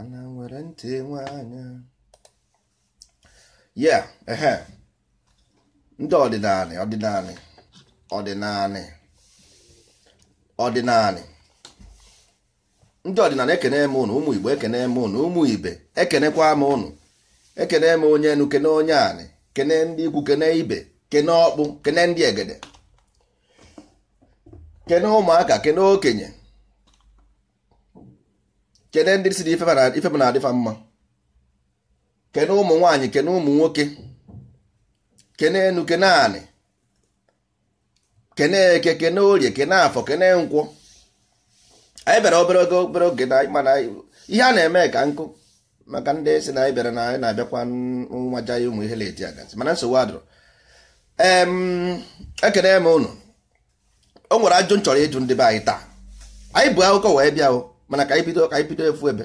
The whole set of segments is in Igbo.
ana nwere ntị nwe anya ya ehe ndị ọdịnala ọdịnala ọdịnala ọdịnala ndị ọdịnala ekene m ụnụ ụmụ igbo ekene m ụnụ ụmụ ibe ekenekwa m ụnụ ekene m onye enu kene onye anị kene ndị ikwu kene ibe kene ọkpụ kene ndị egede kene ụmụaka kene okenye kene ndị si na ife m na-adịfa mma kene ụmụ nwaanyị kene ụmụ nwoke kene enu kene anị kene eke kene orie kene afọ kene nkwọ anyị bịara obere oge obere oge na mana ihe a na-eme ka nkụ maka ndị si na anyị bịara na anyị na-abịakwa nwaja ya ụmụ ihe na-eti agazi mana nsogbu adụrụ ekene m ụnụ o nwere ajụ m chọrọ ịjụ ndị be anyị taa anyị bụ akụkọ wee bịa o mana ka anyị ka anyị efu ebe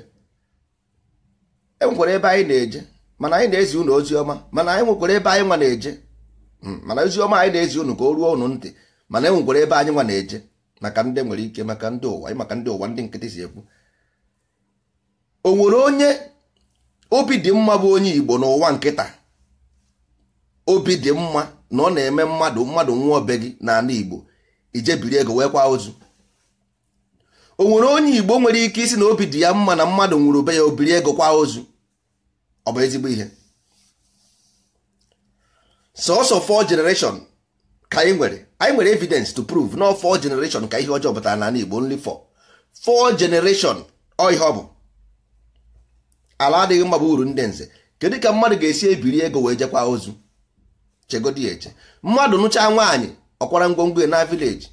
e nwekwara ebe anyị na-eje mana anyị na-ezi unu ozi ọma mana anyị nwekwara ebe anyị nwa na-eje hmm, mana ozi ọma anyị na-ezi unu ka o ruo unu ntị mana e nwekwara ebe anyị nwa na-eje maka ndị nwere ike maka ndị ụwa maka ndị ụwa ndị nkịtị si ekwu o nwere onye obi dị mma bụ onye Igbo n'ụwa nkịta obi dị mma na ọ na-eme mmadụ mmadụ nwa obe gị n'ala Igbo ije biri ego wee kwa ozu o nwere onye igbo nwere ike isi na obi dị ya mma na mmadụ nwụrụ be ya obiri ego kwa ozu ọ bụ ezigbo ihe sọsọ four generation ka anyị nwere anyị nwere evidence to prove na four generation ka ihe ọjọọ na n'ala igbo nri four four generation ọ ọ bụ ala adịghị mma bụ uru ndị nze kedu ka mmadụ ga-esi ebiri ego wee jekwa ozu chegodi eche mmadụ nụchaa nwaanyị ọkwara ngwongwo ya na vileji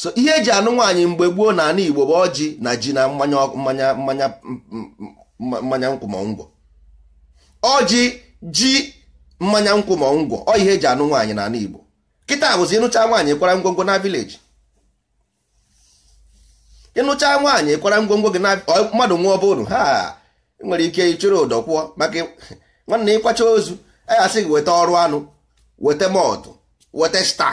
so ihe eji anụ nwaanyị mgbe gboo na ana igbo bụ ọjị na ji na mmanya mmanya mmanya mmanya nkwụmọngwọ ọjị ji mmanya nkwụmọngwọ ọ ihe eji anụ nwaanyị na ana igbo kịta bụzi ịnụcha nwaanyị kwara ngwongwo na vileji ịnụcha nwaanyị kwara ngwongwo gị na mmadụ nwa ọbụrụ ha nwere ike ịchụrụ ụdọ kwụọ maka nwanne ịkwacha ozu a ya asị gị weta ọrụ anụ weta mọtụ weta sta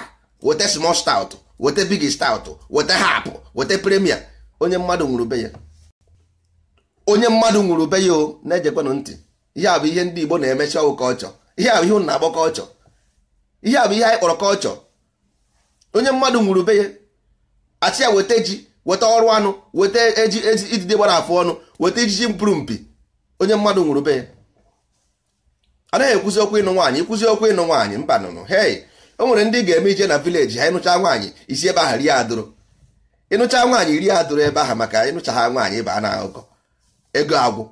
weta small stout weta big stout weta hapụ weta premia onye mmadụ nwụrụ be ya onye mmadụ nwụrụ be ya o na-ejekwanụ ntị ihe a bụ ihe ndị Igbo na-emechi ọwụ kọlchọ ihe a bụ ihe ụnụ na-akpọ kọlchọ ihe a bụ ihe anyị kpọrọ kọlchọ onye mmadụ nwụrụ be ya achị ya weta ji weta ọrụ anụ weta eji idide gbara afọ ọnụ weta ijiji mpụrụ mpi onye mmadụ nwụrụ be ya anaghị ekwuzi okwu ịnụ nwaanyị ikwuzi okwu ịnụ nwaanyị mba nụnụ hei o nwere ndị ga-eme ije na vileji ha ịnụcha nwaanyị isi ebe ahụ ri adụrụ ịnụcha nwaanyị iri adụrụ ebe ahụ maka ịnụcha ha nwaanyị ịba na akụkọ ego agwụ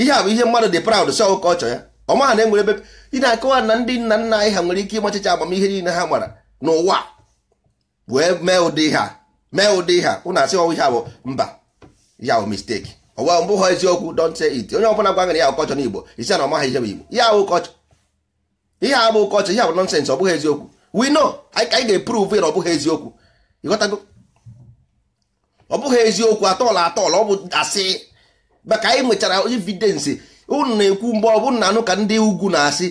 ihe a bụ ihe mmadụ dị proud sọ ụkọchọ ya ọmaha na enwere ebe ị na-akọwa na ndị nna nna anyị ha nwere ike ịmachicha agbamihe niile ha gbara n'ụwa wee mee ụdị ha mee ụdị ha ụna asị ọwụ ihe a bụ mba ya bụ misteki ọwa mbụ ha eziokwu don't say it onye ọbụla gwa gị ya ụkọchọ n'Igbo isi na ọmaha ihe bụ Igbo ya ụkọchọ ihe a bụ kọchị ihe a bụ nọnsensị ọ bụghị eziokwu we know anyị ga-eprove ya ọ bụghị eziokwu ịghọtago ọ bụghị eziokwu atọla atọla ọ bụ asị maka anyị nwechara evidensi unu na-ekwu mgbe ọ bụ na anụ ka ndị ugwu na-asị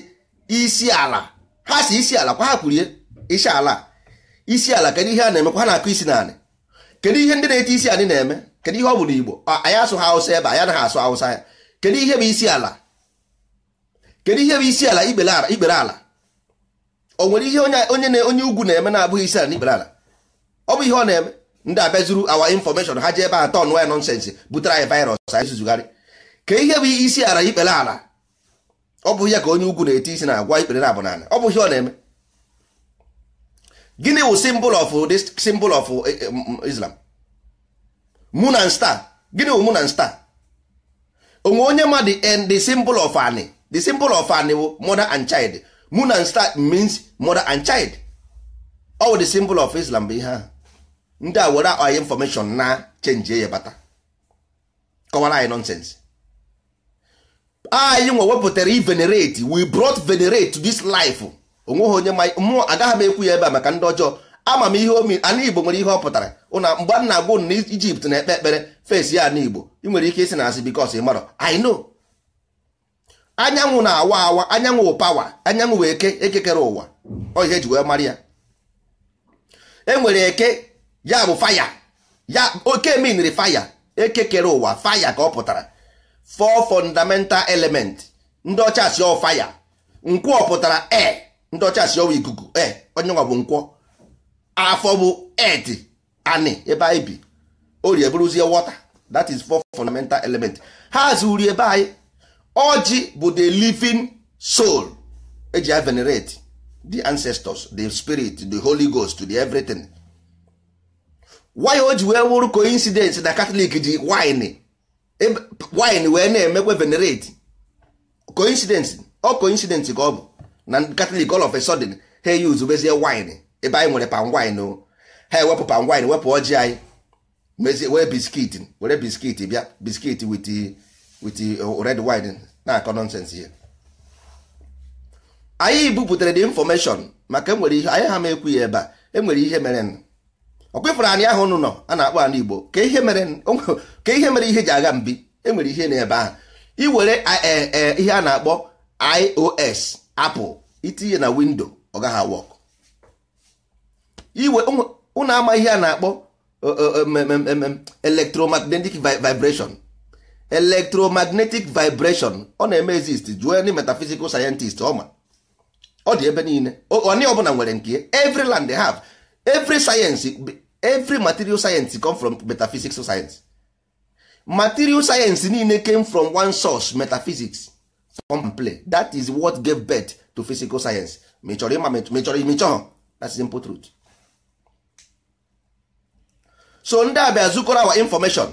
isi ala ha si isi ala kwa ha kwurie isi ala isi ala kedu ihe a na-emekwa ha na-akụ isi naanị kedu ihe ndị na-eti isi anyị na-eme kedu ihe ọ bụ igbo anyị asụ ha Hausa ebe anyị anaghị asụ Hausa ya kedu ihe bụ isi ala kedu ihe bụ isi ala ikpere ala o nwere ihe onye onye ugwu na-eme na-abụghị isi ala n'ikpere ala ọ bụ ihe ọ na-eme ndị abịazuru awa infọmeshọn ha ji ebe a tọn waya nọnsensị butere anyị virus anyị zuzugharị ka ihe bụ isi ala ikpere ala ọ bụ ihe ka onye ugwu na-eti isi na-agwa ikpere na abụ n'ala ọ bụ ihe ọ na-eme gịnị wụ symbol of this symbol of eh, eh, Islam moon and star gịnị wụ moon and star onwe onye mmadụ and eh, the symbol of ani the symbol of anewo mother and child moon and star means mother and child ọ the symbol of islam bụ ihe a ndị a were anyị information na chenji ya bata kọwara anyị nonsens anyị nwe wepụtara venerate we brought venerate to this life onweghị onye mmụọ agaghị m ekwu ya ebe a maka ndị ọjọọ ama m ihe omi ana igbo nwere ihe ọ pụtara ụna mgbe m na-agwụ na ijipt na-ekpe ekpere fes ya na igbo ị nwere ike isi na asị bikos ị marọ i know anyanwụ na-awa awa anyanwụ pawa anyanwụ wee eke ekekere ụwa ọ ji wee mara ya enwere eke ya bụ faya ya oke miniri faya ekekere ụwa faya ka ọ pụtara four fundamental element ndị ọcha si ọ faya nkwọ pụtara e ndị ọcha si ọwa ikuku e onye nwa bụ nkwọ afọ bụ et ani ebe anyị bi orie bụrụzie wọta that is four fundamental element ha zuru ebe anyị ọjị bụ the living soul eji ya venerate the ancestors the spirit the holy ghost the everything why o ji wee wụrụ coincidence na catholic ji wine e wine wee na-emekwe venerate coincidence ọ coincidence ka ọ bụ na catholic all of a sudden ha use bezie wine ebe anyị nwere palm wine o ha ewepụ palm wine wepụ ọjị anyị mezie wee biskit were biskit bịa biskit with with uh, red wine na-akọ nọnsensị ya anyị buputere the information maka enwere ihe anyị ha ma ekwu ya ebe a enwere ihe mere ọkwefere anyị ahụ nụ nọ a na-akpọ anụ Igbo ka ihe mere ihe ji agha mbi enwere ihe n'ebe ahụ iwere e, e, ihe a na-akpọ iOS Apple itinye na windo ọ gaghị awọk iwe ụnụ ama ihe a na-akpọ uh, uh, um, um, um, electromagnetic vibration electromagnetic vibration ọ na-eme exist jụọ ndị metaphysical scientist ọma ọ dị ebe niile onye ọbụla nwere nke every land they have every science every material science come from metaphysical science material science niile came from one source metaphysics from play that is what gave birth to physical science ma ịma ma ị that's simple truth so ndị a bịa zukọrọ our information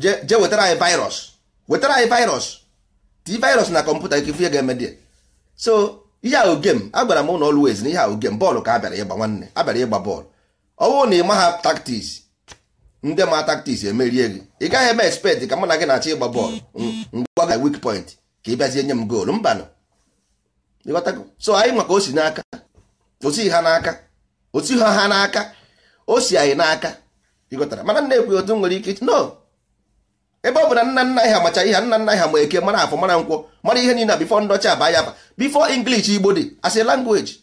je wetara anyị virus wetara anyị virus ti virus na kọmputa ike ihe ga-eme dị so ihe ahụ gem agwara m ụlọ always na ihe ahụ gem bọọlụ ka abịara ịgba nwanne abịara ịgba bọọlụ ọ bụrụ na ị maha taktiks ndị ma taktiks emerie gị ị gaghị eme expect ka mụ na gị na-achọ ịgba bọọlụ mgbe ga weak point ka ị bịazie nye m goolu mbanụ so anyị maka o si n'aka osi ha n'aka osi ha ha n'aka o si anyị n'aka ịghọtara mana nna ekwe otu nwere ike no ebe ọ bụ na nna nna ha macha ihe nna nna ha ma eke mara afọ mara nkwọ mara ihe niile bifo ndọcha aba ya aba bifo inglish Igbo dị as a language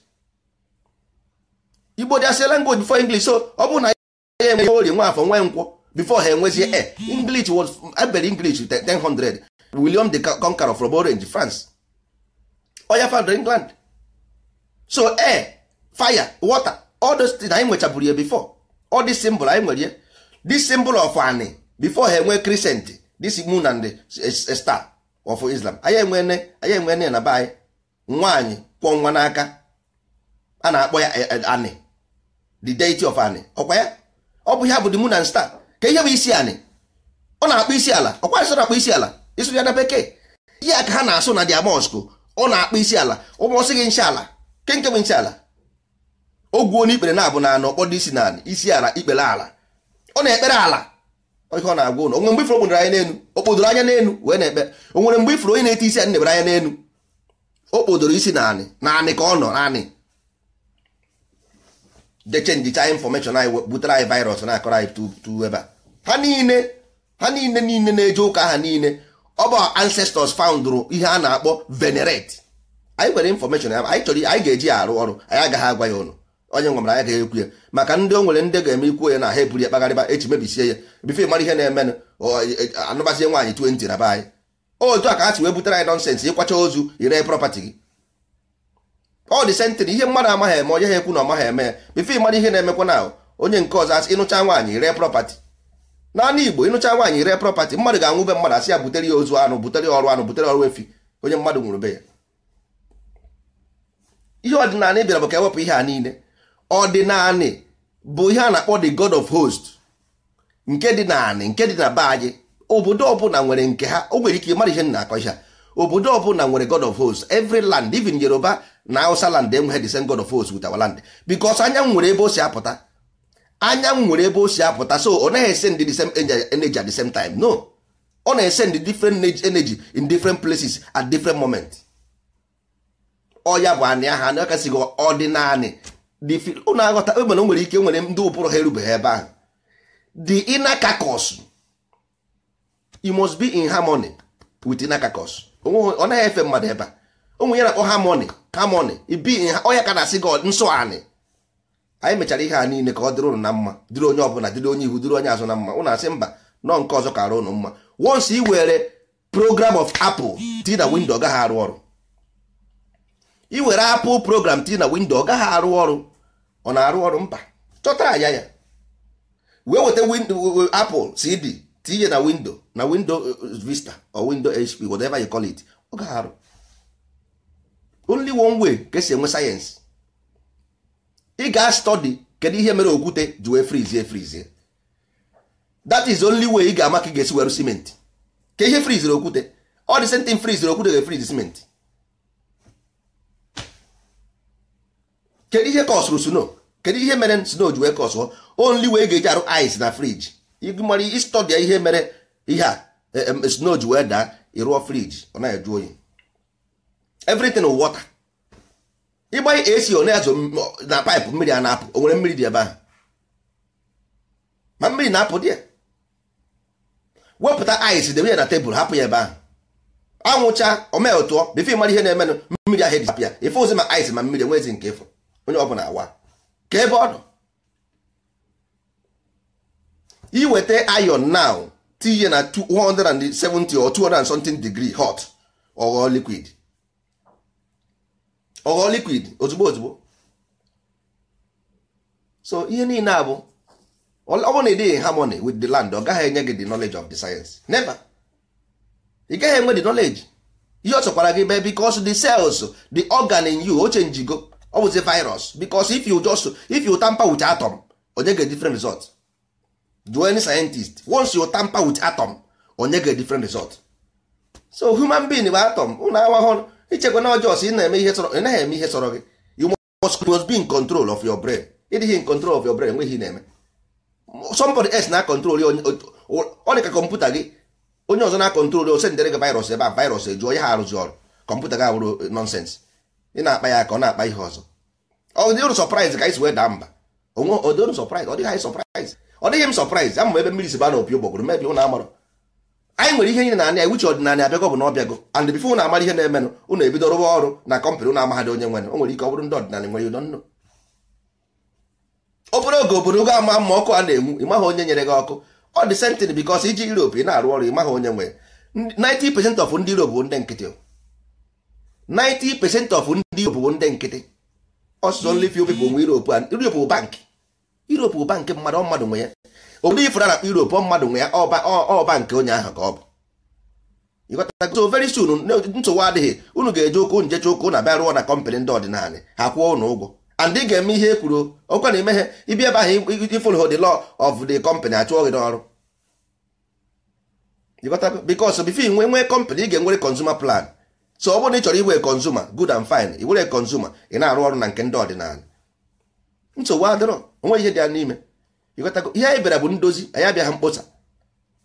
Igbo dị as a language before English so ọ bụ na ya enwe ori nwa afọ nwe nkwọ before ha enwezie e inglish was ebere English 1000 William the Conqueror from Orange France oya founder England so air fire water all those things anyị nwechaburu ya before all this symbol anyị nwere ya this symbol of ani before ha enwe crescent this moon and a star of Islam anyị enwene anyị enwene na be anyị nwaanyị kwọ nwa n'aka a na-akpọ ya e- e- ani the deity of ani ọkwa ya ọ bụ ihe bụ the moon and star ka ihe bụ isi ani ọ na-akpọ isi ala ọkwa nsọ na-akpọ isi ala isụrụ ya na bekee ihe ka ha na-asụ na dia mosque ọ na-akpọ isi ala ụmụọsị gị nshala ke nke bụ nche ala ogwuo n'ikpere na-abụ na anọ kpọdo isi na isi ala ikpere ala ọ na-ekpere ala ihe ọ na-agwa ụlọ onwere mgbe ifuru kpụdoro anya n'elu okpodoro anya n'elu wee na-ekpe o nwere mgbe ifuru onye na-eti isi anyị na-ebere anya n'elu o kpodoro isi naanị naanị ka ọ nọ naanị deche njicha infọmeshọn anyị butere anyị virus na-akọrọ anyị tu ebe a ha niile ha niile niile na-eje ụka ha niile ọ bụ ancestors foundrụ ihe a na-akpọ venerate anyị nwere infọmeshọn ya anyị chọrọ anyị ga-eji ya arụ ọrụ anyị agaghị agwa ya ụlọ onye nwamara ya ga-ekwu ya maka ndị o nwere ndị ga-eme ikwu ya na ha eburu ya kpagharịba echi mebisie ya bifo mara ihe na-emenụ e, e, anụbazie nwaanyị 20 na be anyị otu a ka ha si wee butere anyị nọnsensị ịkwacha ozu ire prọpatị gị ọ dị sentịrị ihe mmadụ amaghị eme onye ha ekwu na ọmaghị eme ya bife mara ihe na-emekwa na onye nke ọzọ asị ịnụcha nwaanyị ire prọpatị naanị igbo ịnụcha nwaanyị ree prọpatị mmadụ ga-anwụ be mmadụ asị ya butere ya ozu anụ butere ọrụ anụ butere ọrụ efi onye mmadụ nwụrụ be ya ihe ọdịnala bịara bụ ka ewepụ ihe a niile ọdịnanị bụ ihe a na-akpọ the god of host nke dị naanị nke dị na be anyị obodo ọbụla nwere nke ha o nwere ike mara ihe na-akọ ihe obodo ọbụla nwere god of host every land even yoruba na awụsa land enweghị the same god of host with our land because anyanwụ nwere ebe o si apụta anyanwụ nwere ebe o si apụta so ọ naghị esend the same energy at the same time no ọ na-esend different energy in different places at different moment ọ ya bụ anị aha na ọkasịghị ọdịnaanị. ụnụ oh, aghọta e nwere ike nwere ndị ụbụrụ ha erubeghị ebe ahụ the inner carcass you must be in harmony with inner carcass ọ naghị efe mmadụ ebe a ụmụ ya na-akpọ harmony harmony ibi onye ka na-asị gị nsọ anị anyị mechara ihe a niile ka ọ dịrị ụnụ na mma dịrị onye ọbụla dịrị onye ihu dịrị onye azụ na mma ụnụ asị mba nọ nke ọzọ kara ụnụ mma once ị were program of apple ti na windo ọ gaghị arụ ọrụ ị were apple program ti na windo ọ gaghị arụ ọrụ ọ na-arụ ọrụ mba chọta anya ya wee weta windo apple cd tinye na windo na windo uh, uh, vista or windo hp whatever you call it ọ ga-arụ only one way ka esi enwe sayensị ị ga-astọdi kedu ihe mere okwute ji wee frizie frizie that is only way ị ga-ama ka ị ga-esi werụ simenti ka ihe friziri okwute ọ dị sentin friziri okwute ga-efrizi simenti kedu ihe kọsụrụ snow kedu ihe mere snow ji wee kọsụọ only wee ga-eji arụ ice na friji ịgụmara ịstọdịa ihe mere ihe a snow ji wee daa ịrụọ friji ọ na-eju oyi everything water ịgbanye esi ọ na-azụ na paịpụ mmiri a na-apụ o nwere mmiri dị ebe ahụ ma mmiri na-apụ dị ya wepụta ice debe ya na tebụl hapụ ya ebe ahụ anwụcha omee tụọ bifo ịmara ihe na-emenụ mmiri ahụ eji hapụ ya ife ozi ma ice ma mmiri enwezi nke ịfụ onye ọbụla awa ka ebe ọ nọ iweta iron now tinye na 170 or 200 something degree hot ọghọọ liquid ọghọọ liquid ozugbo ozugbo so ihe niile a bụ ọ bụrụ na ị dịghị harmony with the land ọ gaghị enye gị the knowledge of the science never ị gaghị enwe the knowledge ihe ọ chọkwara gị be because the cells the organ in you o chenjigo ọ bụzi virus because if you just if you tamper with atom onye ga different result do any scientist once you tamper with atom onye ga different result so human being bụ atom ụlọ awahụ ichekwa na ọjọọ ị na-eme ihe sọrọ naghị eme ihe sọrọ gị you must, be in control of your brain ịdịghị in control of your brain enweghị na-eme somebody else na control ọ dị ka kọmputa gị onye ọzọ na control ose ndere gị virus ebe a virus ejuo ya ha arụzi ọrụ kọmputa gị abụrụ nonsense ị na-akpa ya ka ọ na-akpa ihe ọzọ ọ dịrụ sọpraịz ka anyị si wee mba onwe ọ dịghị anyị sọpraịz ọ dịghị m sọpraịz ama m ebe mmiri si ba na opi ụgbọgụrụ mebi ụnụ amarọ anyị nwere ihe niile na a wuche ọdịnala abịago bụ na ọbịago and bifo ụnụ amara ihe na-emenụ ụnụ ebido rụwa ọrụ na kọmpanị ụnụ amaghadị onye nwere o nwere ike ọ bụrụ ndị ọdịnala nwere ụdọ nnụ oge obodo ama mma ọkụ a na-enwu onye nyere gị ọkụ ọ dị iji ị na-arụ ọrụ onye nwere 90 of ndị bụ ndị nkịtị 90% of ndị Europe bụ ndị nkịtị ọsụsọ only obi bụ nwe Europe and Europe bụ bank Europe bụ bank mmadụ ọ mmadụ nwe ya obodo ifụra na ọ mmadụ nwe ya ọ bank onye ahụ ka ọ bụ ịghọtago very soon nsogbu adịghị unu ga-eje ụkwụ njecha jeche ụkwụ na bịa rụọ na kọmpanị ndị ọdịnala ha kwụọ ụnụ ụgwọ and ị ga-eme ihe e kwuru ọkwa na ime ibi ebe ahụ ifolo the law of the company achụọ gị n'ọrụ ịghọtago bifo nwee nwee kọmpanị ị ga-enwere consumer plan so ọ bụrụ na ị chọrọ iwe kọnzuma good and fine i were kọnzuma ị na-arụ ọrụ na nke ndị ọdịnala nsogbu adịrọ onwe ihe dị ya n'ime ịghọtago ihe anyị bịara bụ ndozi anyị abịaghị mkpọsa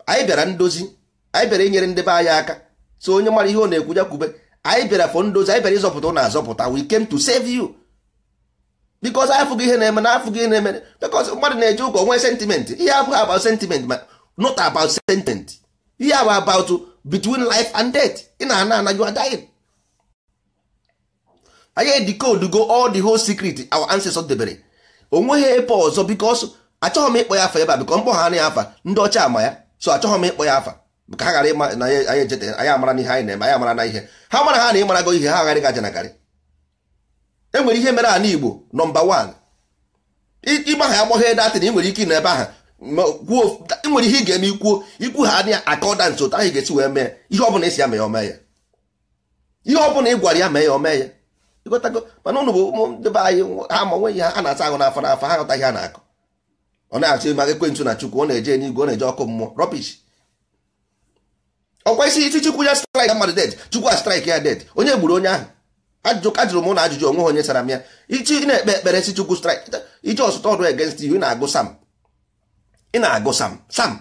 anyị bịara ndozi anyị bịara inyere ndị be anyị aka so onye mara ihe ọ na-ekwu ya kwube anyị bịara fọ ndozi anyị bịara ịzọpụta na azọpụta we came to save you because anyị afụghị ihe na-eme na afụghị ihe na-eme because mmadụ na-eje ụka onwe sentiment ihe abụghị about sentiment ma not about sentiment ihe abụ about between life and death ị na-ana ana you are dying anyị decode go all the whole secret our ancestors debere onweghị ebe ọzọ because achọghị m ịkpọ ya afa ebe a because mkpọ ha anaghị afa ndị ọcha ama ya so achọghị m ịkpọ ya afa ka ha ghara ịma na anyị ejete anyị amara na ihe anyị na-eme anyị amara na ihe ha mara ha na ịmarago ihe ha agharị gaja nagarị e nwere ihe mere ala Igbo nọmba 1 ịgba ha agbọghị datịn ị nwere ike ịnọ ebe ahụ E nwere ihe ị ga-eme ikwuo ikwu ha adịghị akọdant otu ahụ ga-esi wee mee ihe ọbụla esi ya mee ome ya ihe ọbụla ị gwara ya mee ya ome ya ịgotago mana ụnụ bụ ụmụ be anyị ha ma nweghị na-asa ahụ n'afọ n'afọ ha ghọtaghị ha na-akọ ọ na-asị maka ekwentị na chukwu ọ na-eje n'igwe ọ na-eje ọkụ mmụọ rọbish ọkwa isi isi chukwu ya straik mmadụ det chukwu a straik ya det onye gburu onye ahụ ajụjụ jụrụ m na ajụjụ onwe ha onye sara m ya ichi na-ekpe ekpere si chukwu straik iji ọsụta ọdụ egensị iwu na-agụ sam ị na-agụ sam sam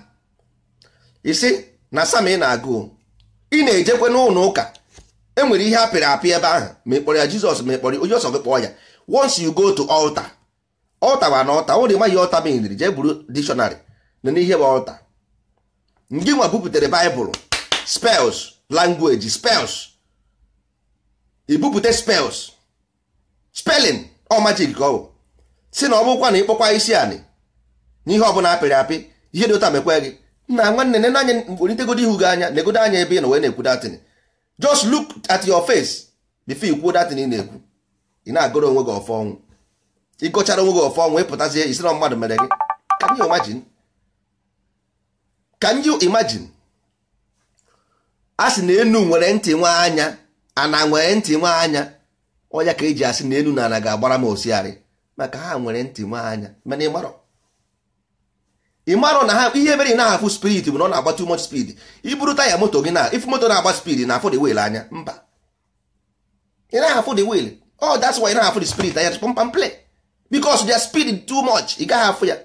isi na sam ị na-agụ ị na-ejekwe n'ụlọ ụka enwere ihe apịrị apị ebe ahụ ma ị kpọrọ ya jizọs ma ị kpọrọ onye ọsọ gị kpọọ ya once you go to altar altar wa na altar ụlọ ịmaghị altar meniri jee buru dictionary na n'ihe bụ ọlta ndị nwa bupụtere baịbụl spells langweji spells ibupụte spels spelling ọmajik majik si na ọ bụkwa na ịkpọkwa isi anị nihe ọ bụla apịrị apị ihe dị ụta mekwe gị na nwanne nene anya welitegodi ihu gị anya negodo anya ebe ị nọ wee na-ekwu datin just look at your face before ikwuo datin ị na-ekwu ị na-agụrụ onwe gị ọfọ ọnwụ ịgọchara onwe gị ọfọ ọnwụ ịpụtazie isiro mmadụ mere gị can you imagine a sị na enu nwere ntị nwe anya ana nwere ntị nwe anya ọnya ka eji asị na enu na ana ga-agbara m osiarị maka ha nwere ntị nwe anya mana ị ị marụ na ha ihe mere ị na-ahafụ spirit bụ na ọ na-agba too much speed iburu taya moto gị na if moto na-agba speed na afụ the wheel anya mba ị na-ahafụ the wheel ọ oh, that's why ị na-ahafụ the spirit anya pam play because their speed too much ị gaghị afụ ya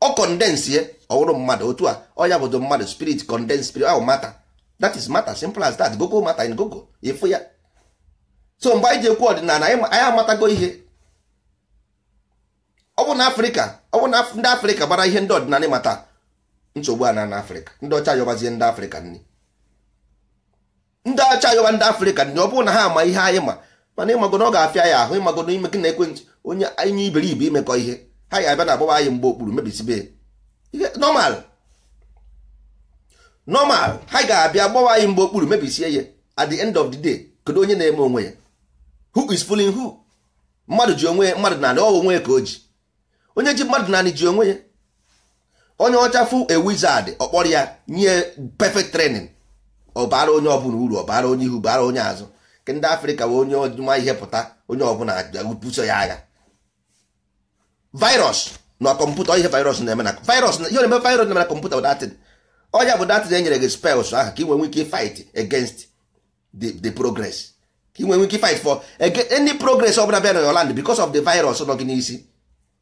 ọ condense ye ọwụrụ mmadụ otu a ọya bụdo mmadụ spirit condense spirit ahụ mata that is matter simple as that gogo mata in gogo ịfụ ya so mgbe anyị ji ekwu ọdịnala anyị amatago ihe ọ bụ na afrịka ọ bụ na ndị afrịka gbara ihe ndị ọdịnala mata nsogbu a na na afrịka ndị ọcha yọbazie ndị afrịka nri ndị ọcha yọba ndị afrịka nri ọ bụrụ na ha ama ihe anyị ma mana ịmago na ọ ga-afịa ya ahụ ịmago na ime gị na ekwentị onye anyị iberibe imekọ ihe ha ya abịa na agbaba anyị mgbe okpuru mebisibe ihe nọmal nọmal ha ga-abịa gbawa anyị mgbe okpuru mebisie ya at the end of the day kedu onye na-eme onwe ya who is fooling who mmadụ ji onwe mmadụ na ala ọ onwe ya ka o ji onye ji mmadụ naanị ji onwe ya onye ọchafụ a wizard ọkpọrọ ya nye perfect training ọ bara onye ọbụla uru ọ bara onye ihu bara onye azụ nke ndị afrịka wee onye ọjụma ihe pụta onye ọbụla buso ya agha virus na kọmputa ihe virus na-eme na virus na ihe na-eme virus na-eme na kọmputa datin ọnya bụ datin enyere gị spells ahụ ka ị nwee ike fight against the progress ka ị nwee ike fight for any progress ọbụla bịa na your land because of the virus nọ gị n'isi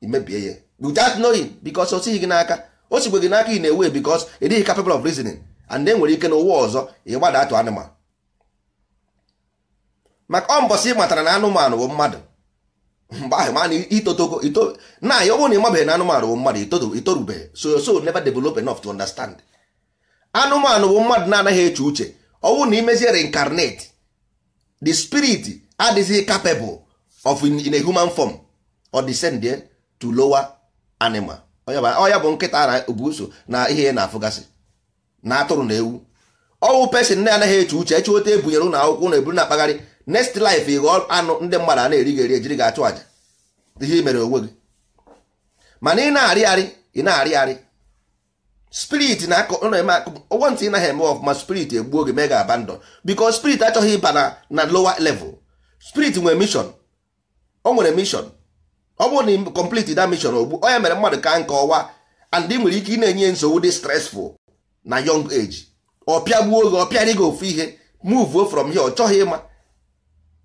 imebie ya without knowing because o sighi gị n'aka o sigwe gị n'aka ị na-ewe because ị dịghị capable of reasoning and enwere ike na ụwa ọzọ ị gbada atụ anụmanụ maka ọ mbọsị ị matara na anụmanụ bụ mmadụ mgbe ahụ mana itotoko ito na ya ọ bụrụ na ị mabeghị na anụmanụ bụ mmadụ itorubeghị so so never develop enough to understand anụmanụ bụ mmadụ na-anaghị eche uche ọ bụrụ na imezie reincarnate the spirit adịghị capable of in a human form ọ descend to lower animal ọya bụ nkịta na obuso na ihe na afụgasị na atụrụ na ewu ọwụ pesin na anaghị eche uche eche ote ebunyere ụlọ akwụkwọ na eburu na-akpagharị next life ịghọ anụ ndị mmadụ a na-eri gị eri ejiri gị achụ àjà ihe mere onwe gị mana ị na-arịgharị ị na-arịgharị spirit na ụgwọ ntị ị naghị eme ọfụma spirit egbuo gị mee ga abandon because spirit achọghị ịba na lower level spirit nwere mission o nwere mission ọ bụrụ na ị complete that mission ogbu onye mere mmadụ ka nke ọwa and ị nwere ike ị na-enye nsogbu dị stressful na young age ọpịa gbuo oge ọpịa dị gị ofu ihe move from here ọ chọghị ịma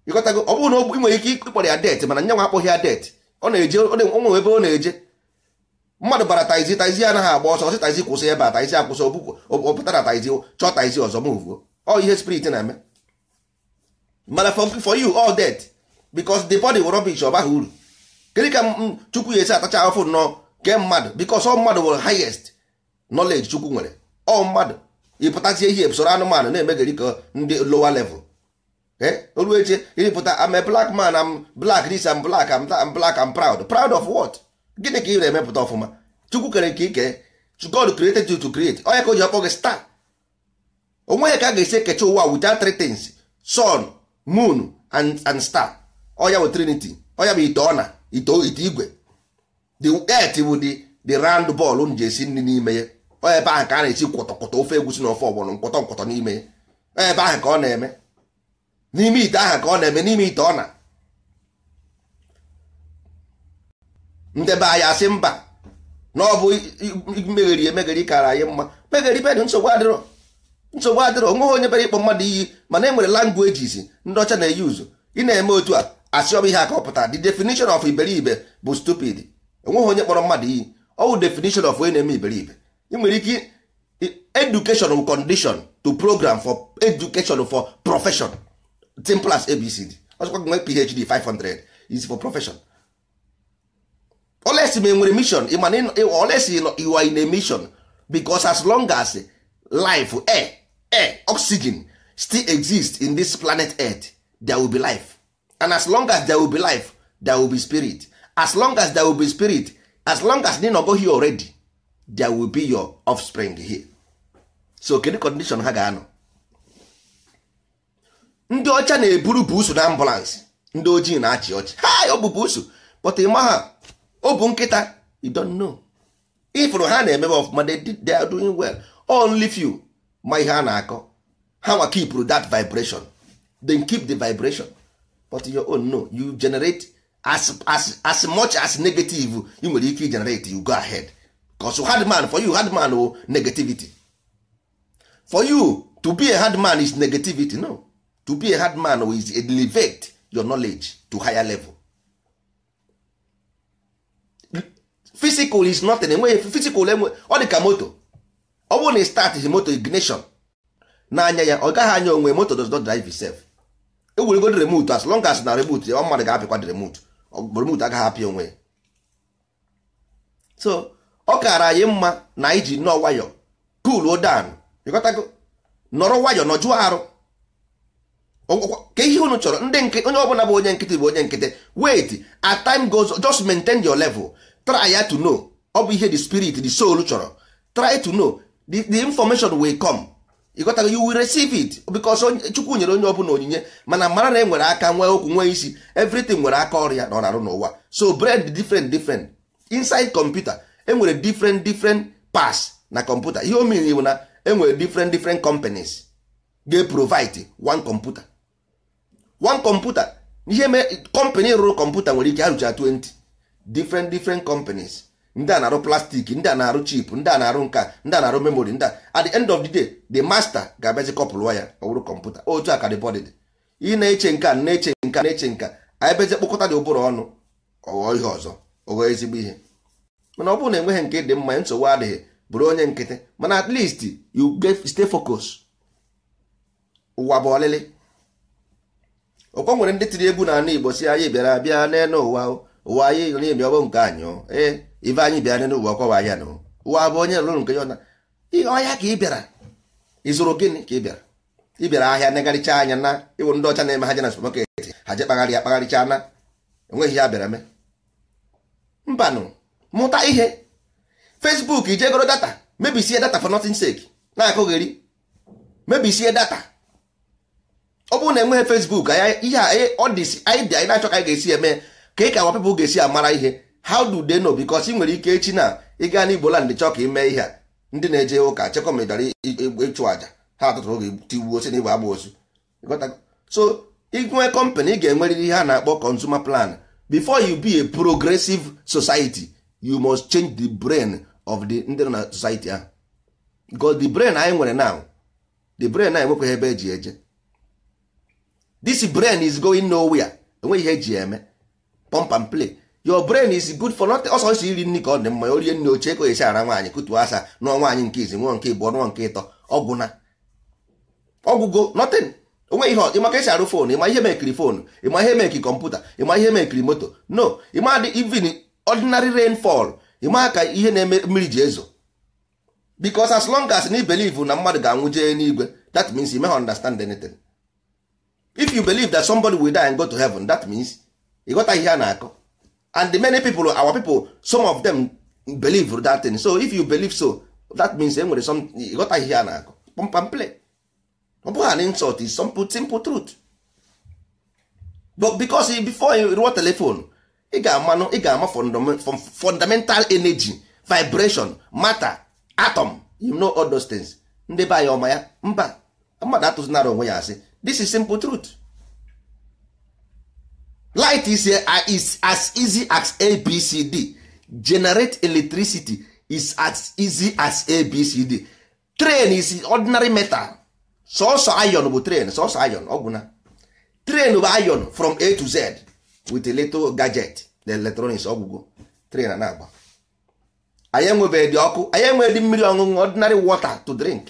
ịkọtago ọ bụrụ na ị nwere ike ịkpọrọ ya det mana nyanwa akpọghị ya det ọ na-eje onwe ebe ọ na-eje mmadụ bara taizi taizi anaghị agba ọsọ ọsị taizi kwụsị ebe a taizi akwụsị ọpụtara taizi chọọ taizi ọzọ move ọ ihe spirit na-eme mana for you all that because the body rubbish ọ baghị uru kedu ka chukwu ya esi atacha afọ nnọọ ke mmadụ bikos ọ mmadụ nwere highest knowledge chukwu nwere ọ mmadụ ịpụtazie ihe soro anụmanụ na-emegari ka ndị lowa level eh? oru eche ịrịpụta am a black man am black this am black am am black am proud proud of what gịnị ka ị na-emepụta ọfụma chukwu kere ka ike god created you to create onye ka o ji ọkpọ gị star onwe ya ka a ga-esi ekecha ụwa without three things sun moon and and star ọya bụ trinity ọya bụ ite ọna ite igwe the bụ the the round ball m ji esi nri n'ime ya ọ ebe ahụ ka a na-esi kwọtọkwọtọ ofe egusi na ofe ọgbọnọ nkwọtọ nkwọtọ n'ime ya ọ ebe ahụ ka ọ na-eme n'ime ite ahụ ka ọ na-eme n'ime ite ọ na ndebe anyị asị mba na ọ bụ megheri emegheri kara anyị mma megheri bedị nsogbu adịrọ nsogbu adịrọ onweghị onye bere ịkpọ mmadụ iyi mana e nwere languages ndị ọcha na-eyi ị na-eme otu a asị ọ ihe a the definition of iberibe bụ stupid enweghị onye kpọrọ mmadụ iyi ọwụ definition of onye na-eme iberibe ị nwere ike education condition to program for education for profession simple as abcd ọzọkwa nwee phd 500 is for profession olesi ma enwere mission olesi you are in a mission because as long as life air air oxygen still exist in this planet earth there will be life and as long as there will be life there will be spirit as long as there will be spirit as long as they go here already there will be your offspring here so kedu condition ha ga-anọ ndị ọcha na-eburu buusu na ambulance ndị ojii na-achị ọchị ha ọ bụ buusu but ịma ha ọ bụ nkịta you don't know ifụrụ ha na-emebe ọfụma they are doing well only few ma ihe a na-akọ ha nwa keep that vibration then keep the vibration but your own no you generate as as as much as negative you nwere ike generate you go ahead you hard man for you hard man o oh, negativity for you to be a hard man is negativity no to be a hard man oh, is elevate your knowledge to higher level physical is nothing enweghị physical enwe ọ dị ka moto ọ bụrụ na ị start moto ignition n'anya ya ọ gaghị anya onwe moto does not drive itself ewuregod remot as long as na remut ọ mmadụ ga-apịkwa remut remut agaghị apịa onwe ya so ọ kaara anyị mma na anyị ji nọ nwayọ pool odan ịghọtago nọrọ nwayọọ nọjụọ arụ ka ihe unu chọrọ ndị onye ọbụla bụ onye nkịtị bụ onye nkịtị wait at time goes just maintain your level try ya to know ọ bụ ihe the spirit the soul chọrọ try to know the, the information will come ịghọtago you will receive it because chukwu nyere onye ọbụla onyinye mana mara na e nwere aka nwee okwu nwee isi everything nwere aka ọrịa na ọ na-arụ n'ụwa so bread different different inside computer enwere different different pass na computer ihe omiri bụ na enwere different different companies ga-provide one computer one computer ihe mee company rụrụ computer nwere ike arụcha 20 different different companies ndị a na-arụ plastik ndị a na-arụ chip ndị a na-arụ nka ndị a na-arụ memori ndị a at the end of the day the master ga-abịazi kọpụlụwa ya ọ kọmputa otu a ka dịbọdị dị ị na-eche nka na-eche nka na-eche nka anyị bezi kpokọta dị ụbụrụ ọnụ ọghọ ihe ọzọ ọghọ ezigbo ihe mana ọ bụrụ na enweghị nke dị mma nsogbu adịghị bụrụ onye nkịtị mana at least you stay focus ụwa bụ ọlịlị ọkwa nwere ndị tiri egwu n'ala Igbo si anyị bịara bịa n'elu ụwa ụwa anyị na-ebi nke anyị ee ibe anyị bịara n'ụwa ọkọwa ahịa na ụwa bụ onye lụrụ nke ya na ọhịa ka ị bịara ịzụrụ gịnị ka ị bịara ị bịara ahịa negharịcha anya na ịwụ ndị ọcha na-eme ha je na supermarket ha je kpagharị ya kpagharịcha na enweghị ya bịara mee mbanụ mụta ihe Fesbuk ije goro data mebisie data for nothing sake na-akụgheri mebisie data ọ bụrụ na enweghị Facebook ihe e, ọ dị anyị bịa anyị na-achọ ka anyị ga-esi eme ka ị ka awa people ga-esi amara ihe how do they know because ị nwere ike echi na ịga n'Igbo land chọọ ka ime ihe a ndị na-eje ụka ma chekomedara ịchụ àjà ha atụtụ oge tigbuo si na igbo agba osu so ịnwe company ị ga-enwerịrị ihe a na-akpọ consumer plan before you be a progressive society you must change the brain of the ndị nọ na society ahụ because the brain anyị nwere now the brain anyị nwekwaghị ebe eji eje this brain is going nowhere enweghị ihe eji eme pump and play your brain is good for nothing ọsọ isi iri nri ka ọ dị mma orie oche ka esi ara nwaanyị kutuo asa nụọ nwaanyị nke izi nke ịbụọ nụọ nke ịtọ ọgwụ na ọgwụgo nothing onwe ihe esi arụ fon ịma ihe mekiri fon ịma ihe mekiri kọmputa ịma ihe mekiri moto no ịma dị even ordinary rainfall ịma ka ihe na mmiri ji ezo as na mmadụ ga-anwụ jee n'igwe that means you may understand anything if you believe that somebody will ihe a na-akọ and the many people our people some of them believe that thing so if you believe so that means e nwere some got ihe a na-akụ pompam play ọ bụghị an insult is some simple truth but because before you rụọ telephone ị ga-amanụ ị ga-ama fundamental energy vibration matter atom you know all those things ndị be anyị ọma ya mba mmadụ atụzinara onwe ya asị this is simple truth light is, uh, is as easy as abcd generate electricity is as easy as abcd train is ordinary metal sọsọ iron bụ train sọsọ iron ọgwụna train bụ iron from a to z with a little gadget the electronics ọgwụgwọ train na-agba anyị enwebeghị dị ọkụ anyị enweghị dị mmiri ọṅụṅụ ordinary water to drink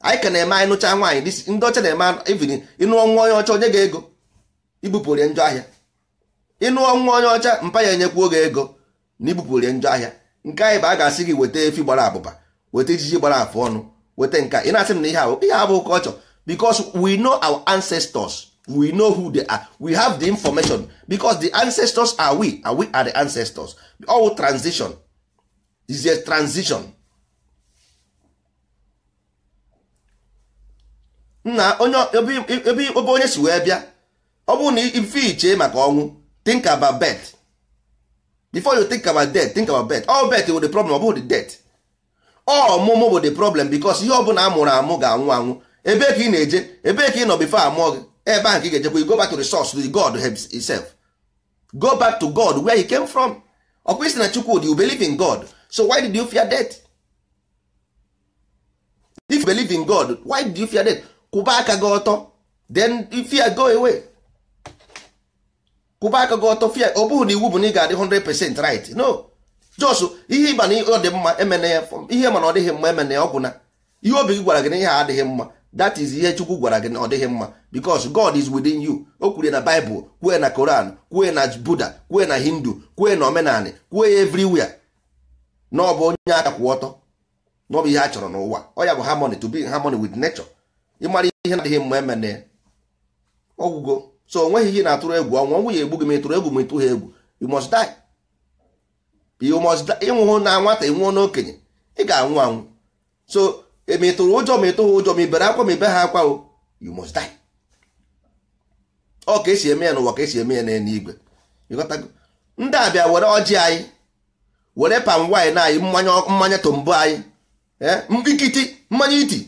anyị ka na-eme anyị nụcha nwaanyị ndị ọcha na-eme even ịnụọ nwa onye ọcha onye ga ego ibupụ orie njọ ahịa ịnụọ nwa onye ọcha mpa ya enyekwuo gị ego na ibupụrie njọ ahịa nke anyị bụ a ga-asị gị weta efi gbara abụba weta ejiji gbara afọ ọnụ weta nke ị na-asị m na ihe abụ ihe abụ culture because we know our ancestors we know who they are we have the information because the ancestors are we and we are the ancestors all transition is a transition na onye ebe onye si wee bịa ọ bụrụ na ife iche maka ọnwụ think about birth before you think about death think about birth all birth bụ the problem ọ the death ọmụmụ bụ the problem because ihe ọbụla a mụrụ amụ ga-anwụ anwụ ebe ka ị na-eje ebe ka ị nọ before amụọ gị ebe ahụ ka ị ga-ejekwa go back to the source to God himself go back to God where he came from ọkwa isi na Chukwudi you believe in God so why did you fear death if you believe in God why did you fear death kwụba aka gị ọtọ then fear go away kwụba aka gị ọtọ fia ọ bụghị na iwu bụ na ị ga-adị 100% right no jos ihe ịba na ọ dị mma emene ya ihe mana ọdịghị mma emene ya ọgwụ na ihe obi gị gwara gị na ihe adịghị mma that is ihe chukwu gwara gị na ọ dịghị mma because god is within you o kwuru na bible kwue na koran kwue na buddha kwue na hindu kwue na omenani kwue ya everywhere na ọ bụ onye aka kwụ ọtọ na ọ bụ ihe a chọrọ n'ụwa ọ ya bụ harmony to be in harmony with nature ịmara ihe na-adịghị mma emene ọgwụgo so onweghị ihe na-atụrụ egwu ọnwa ọnwụ ya egbu gị ma ịtụrụ egwu ma ịtụ ha egwu you must die you must die ịnwụhụ na nwata ịnwụọ n'okenye ị ga-anwụ anwụ so e, ma ịtụrụ ụjọ ma ịtụ ha ụjọ ma ibere akwa ma ibe ha akwa o you must die ọ ka esi eme ya n'ụwa ka esi eme ya n'eluigwe ndị abịa were ọjị anyị were pam wine anyị mmanya mmanya tombo anyị ikiti eh, mmanya iti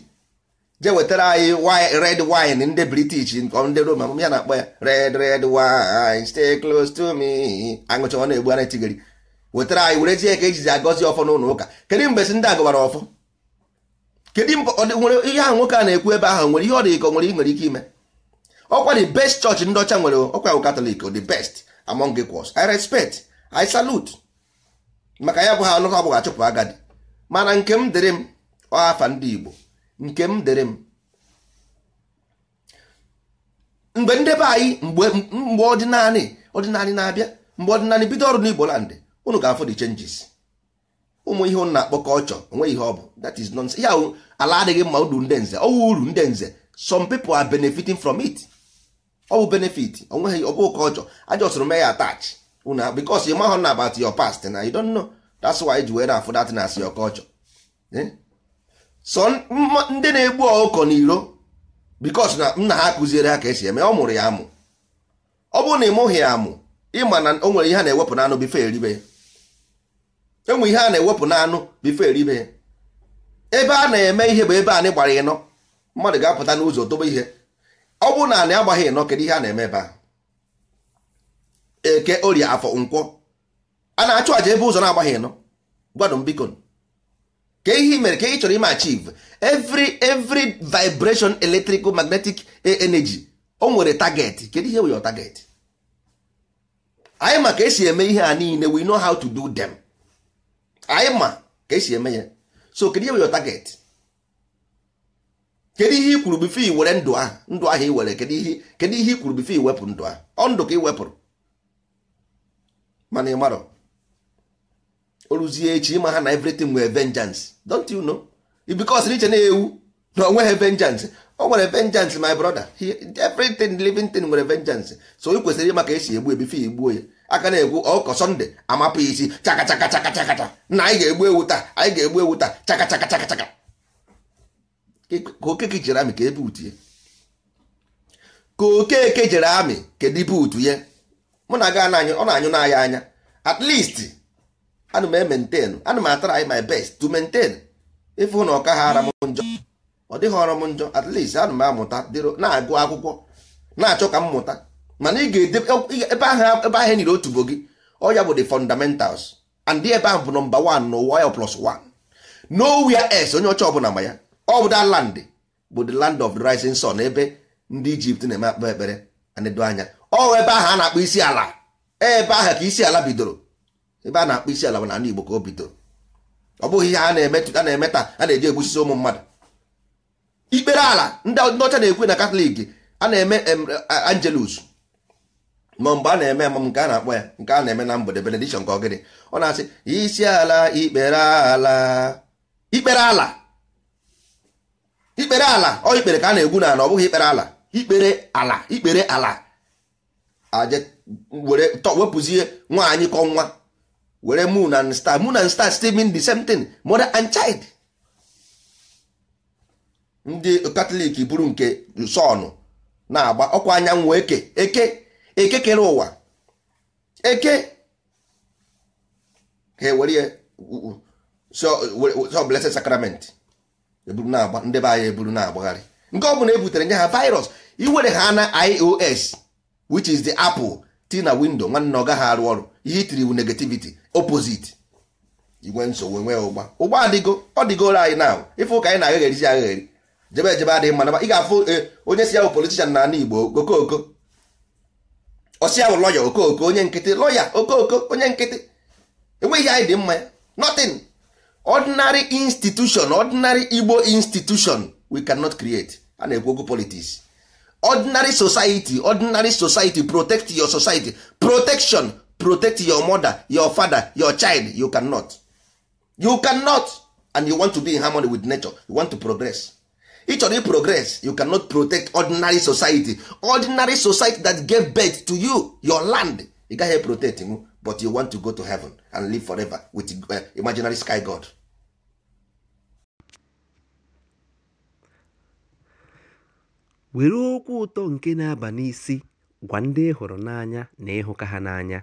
je wetara anyị red wine ndị british ndị roman ya na-akpọ ya red red wine stay close to me aṅụcha ọ na-egbu ana tigiri wetara anyị were ji ka ejizi agọzi ọfọ n'ụlọ ụka kedu mgbe si ndị a gọwara ọfọ kedu ihe ahụ nwoke a na-ekwu ebe ahụ nwere ihe ọ dị ka nwere nwere ike ime ọkwa the best church ndị ọcha nwere ọkwa katọlik the best among equals i respect i salute maka ya bụ ha ọnụkọ abụghị achụpụ agadi mana nke m dịrị m ọhafa ndị igbo nke m dere m mgbe ndebe anyị mgbe ọdịnanị ọdịnanị na-abịa mgbe ọdịnanị bido ọrụ n'Igbo land unu ga-afụ the changes ụmụ ihe na-akpọ kọlchọ onwe ihe ọ bụ that is nonsense ya ala adịghị mma uru ndị nze ọwụ uru ndị nze some people are benefiting from it ọ bụ benefit onweghị ọ bụ kọlchọ aja ọsụrụ mee ya attach una because you mahụ na about your past na you don't know that's why ji were afụ that na as your kọlchọ. sọ ndị na-egbu ọkụkọ n'iro bikos na nna ha kụziere ha ka esi eme ọ mụrụ ya amụ ọ bụrụ na ị ya amụ ịma na o nwere ihe a na-ewepụ n'anụ bife eribe ya enwe ihe a na-ewepụ n'anụ bife eribe ya ebe a na-eme ihe bụ ebe anyị gbara ịnọ mmadụ ga-apụta n'ụzọ dobe ihe ọ bụrụ na anyị agbaghị ịnọ kedu ihe a na-eme ebe a eke orie afọ nkwọ a na-achụ aja ebe ụzọ na-agbaghị ịnọ gwadụ m biko ka ihe mere ka ị chọrọ ime achieve every every vibration electrical magnetic energy o nwere target kedu ihe wee target anyị ma ka esi eme ihe a niile we know how to do them anyị ma ka esi eme ya so kedu ihe wee target kedu ihe i kwuru bifo i were ndụ ahụ ndụ ahụ i were kedu ihe kedu ihe i kwuru bifo iwepụ ndụ ahụ ọ ndụ ka i wepụrụ mana ị marọ oruzie echi ịma ha na everything nwere vengeance don't you know because n'iche na-ewu na onweghị vengeance o nwere vengeance my brother everything living thing nwere vengeance so ị kwesịrị ịma ka esi egbu ebifi egbuo ya aka na-egbu ọkọ oh, sọnde amapụ isi chakachakachakachakacha na anyị ga-egbu ewu taa anyị ga-egbu ewu taa chakachakachakachaka ka okeke jere amị ka ebe ya ka okeke jere amị kedu ibe utu ya mụ na aga na ọ na-anyụ n'anya anya at least ana m ementenụ ana m my best to maintain ịfụ na ọka ha ara m njọ ọ dịghị ọrụ m njọ at least ana m amụta na-agụ akwụkwọ na-achọ ka m mụta mana ị ga-ede ebe ahụ ebe ahụ e nyere otubo gị ọ ya bụ the fundamentals and ebe ahụ bụ nọmba 1 n'ụwa ya plus 1 nowhere S onye ọcha ọbụla ma ya ọ bụ that land bụ the land of the rising sun ebe ndị Egypt na-eme akpa ekpere na anya ọ ebe ahụ a na-akpọ isi ala ebe ahụ ka isi ala bidoro ebe a na-akpọ isi ala bụ n'ala Igbo ka o bido ọ bụghị ihe a na-eme a na-eme a na-eji egbusisi ụmụ mmadụ ikpere ala ndị ọcha na-ekwu na katọlik a na-eme angelus ma mgbe a na-eme emam nke a na-akpọ ya nke a na-eme na mgbede benedishọn ka ọ gịnị ọ na-asị isi ala ikpere ala ikpere ala ikpere ala ọ ikpere ka a na-egwu n'ala ọ bụghị ikpere ala ikpere ala ikpere ala aje were wepụzie nwaanyị kọ nwa were moon and star moon and star still mean the same thing mother and child ndị katọlik bụrụ nke sọnụ na-agba ọkwa anyanwụ eke eke eke kere ụwa eke ha ewere so blessed sacrament eburu na-agba ndị be anyị e eburu na-agbagharị nke ọ bụla e butere nye ha virus iwere ha na ios which is the apple ti na windo nwanne ọ ha arụ ọrụ ihe itiri wu negativity opposite igwe nsogbu nwee ụgba ụgba adịgo ọ dịgoro anyị na ife ka anyị na-aghegherisi agheri jebe ejebe adịghị mma ị ga-afụ eh, onye si ya bụ politishan na Igbo okooko ọsi ya bụ lọya okooko onye nkịtị lọya okooko onye nkịtị enweghị anyị dị mma nothing ordinary institution ordinary Igbo institution we cannot create a na-ekwu okwu politics ordinary society ordinary society protect your society protection protect your mother your father your child you cannot you cannot and you want to be in harmony with nature you want to progress ị chọrọ progress you cannot protect ordinary society ordinary society that gave birth to you your land you gaghị protect him, but you want to go to heaven and live forever with uh, imaginary sky god were okwu ụtọ nke na-aba n'isi gwa ndị hụrụ n'anya na ịhụka ha n'anya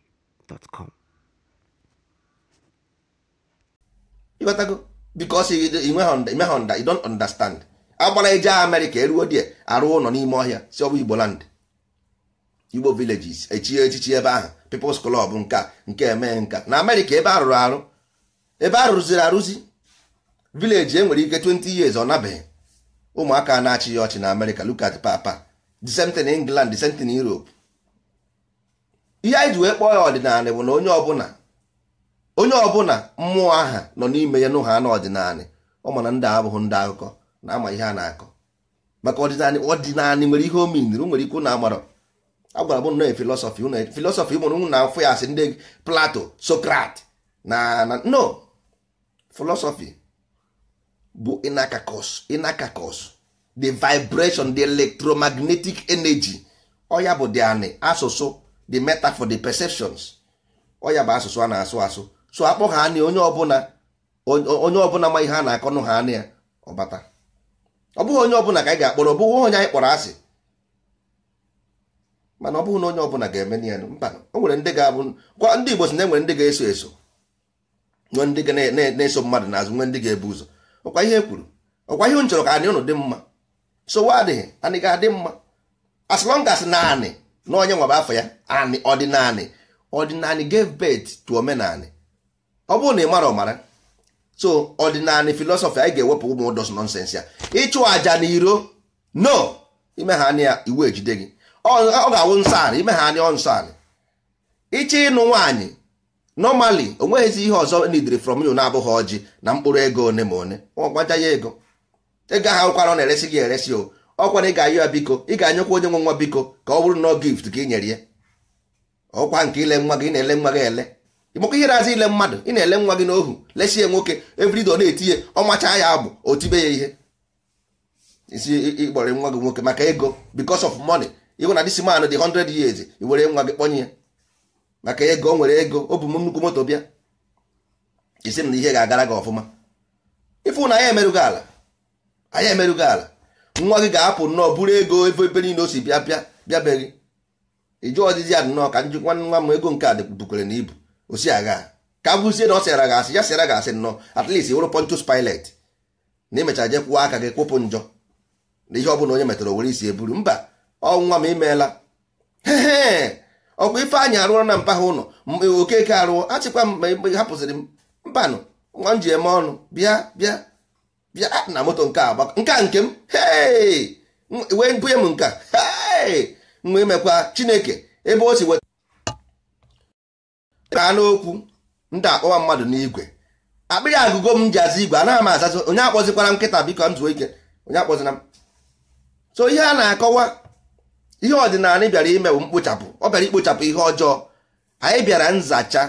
gmail.com ịghọtago bikos imegha nda you don't understand agbara eje amerịka eruo die arụ ụlọ n'ime ọhịa si ọbụ igbo land igbo villages echie echichi ebe ahụ peoples club nka nke eme nka na amerịka ebe arụrụ arụ ebe arụrụziri arụzi vileji enwere ike 20 years ọ nabeghị ụmụaka na-achị ya ọchị na amerịka look at papa the england the same thing europe ihe anyị ji wee kpọọ ya ọdịnala bụ na onye ọbụla onye ọbụla mmụọ aha nọ n'ime ya n'ụha ha n'ọdịnala ọ ma na ndị abụghị ndị akụkọ na ama ihe a na-akọ maka ọdịnala ọdịnala nwere ihe omeniri nwere ike na agbara agwara bụ nọọ filọsọfị filọsọfị ụmụrụ na afọ ya asị ndị plato sokrat na na no filọsọfị bụ inakakos inakakos the vibration the electromagnetic energy ọ ya bụ anị asụsụ the metaphor the perceptions ọ ya bụ asụsụ a na-asụ asụ so akpọ ha anị onye ọbụla onye ọbụla ma ihe a na-akọnụ ha anị ya ọbata ọ bụghị onye ọbụla ka anyị ga-akpọrọ ọ bụghị onye anyị kpọrọ asị mana ọ bụghị na onye ọbụla ga-eme na ya mba o nwere ndị ga-abụ kwa ndị Igbo si na enwere ndị ga-eso eso nwee ndị ga na-eso mmadụ n'azụ nwee ndị ga-ebu ụzọ ọkwa ihe e kwuru ọkwa ihe m chọrọ ka anị ụnụ dị mma so wa adịghị anị ga-adị mma as long na anị na onye afọ ya anị ọdịnanị ọdịnanị gave birth to omenanị ọ bụrụ na ị mara ọmara so ọdịnanị filọsọfị anyị ga-ewepụ ụmụ ụdọs nọnsensị ya ịchụ àjà na iro no ime ha anya iwu ejide gị ọ ga-awụ nsọ anị ime ha anya ọ nsọ anị ịchọ ịnụ nwaanyị normally o nweghịzi ihe ọzọ nidiri from you na-abụghị ọjị na mkpụrụ ego one ma one ọ ya ego ego ahụ ụkwara ọ na-eresi gị eresi o ọkwa na ị ga-ayọ ya biko ị ga-anyekwa onye nwe nwa biko ka ọ bụrụ na gift ka ị nyere ya ọkwa nke ile nwa gị ị na-ele nwa gị ele ịmakwa ihe na-azụ ile mmadụ ị na-ele nwa gị n'ohu lesie nwoke evrido na-etinye ọmacha ya abụ otibe ya ihe isi ịkpọrọ nwa gị nwoke maka ego because of money ịhụ na disi man dị 100 years i were nwa gị kpọnye ya maka ego o nwere ego o m nnukwu moto bịa isi m na ihe ga-agara gị ọfụma ịfụ na anyị emerụghị ala anyị emerụghị ala nwa gị ga-apụ nnọọ buru ego ebe ebe niile o si bịa bịa bịabeghị ịjụ ọdịdị ya nnọọ ka njikwa nwa m ego nke a bukwere na ibu o agha ka bụzie na ọ sịara gị asị ya sịara gị asị nnọọ at least wụrụ Pontius Pilate na emechara je kwụọ aka gị kwụpụ njọ na ihe ọ bụla onye metara were isi eburu mba ọnwa m imeela ọkwa Ifeanyị arụọla na mpa ụlọ okeke arụọ achịkwa m hapụsịrị m mbanụ nwa m ji eme ọnụ bịa bịa bịa na moto nke agba nke a nke m wee bunye m nke wee mekwa chineke ebe o si weta n'okwu ndị akpọwa mmadụ n'igwe akpịrị agụgo m ji aza igwe anaghị m azazi onye akpọzikwara nkịta biko m zuo ike onye akpọzina m so ihe a na-akọwa ihe ọdịnala bịara ime bụ mkpochapụ ọ bịara ikpochapụ ihe ọjọọ anyị bịara nzacha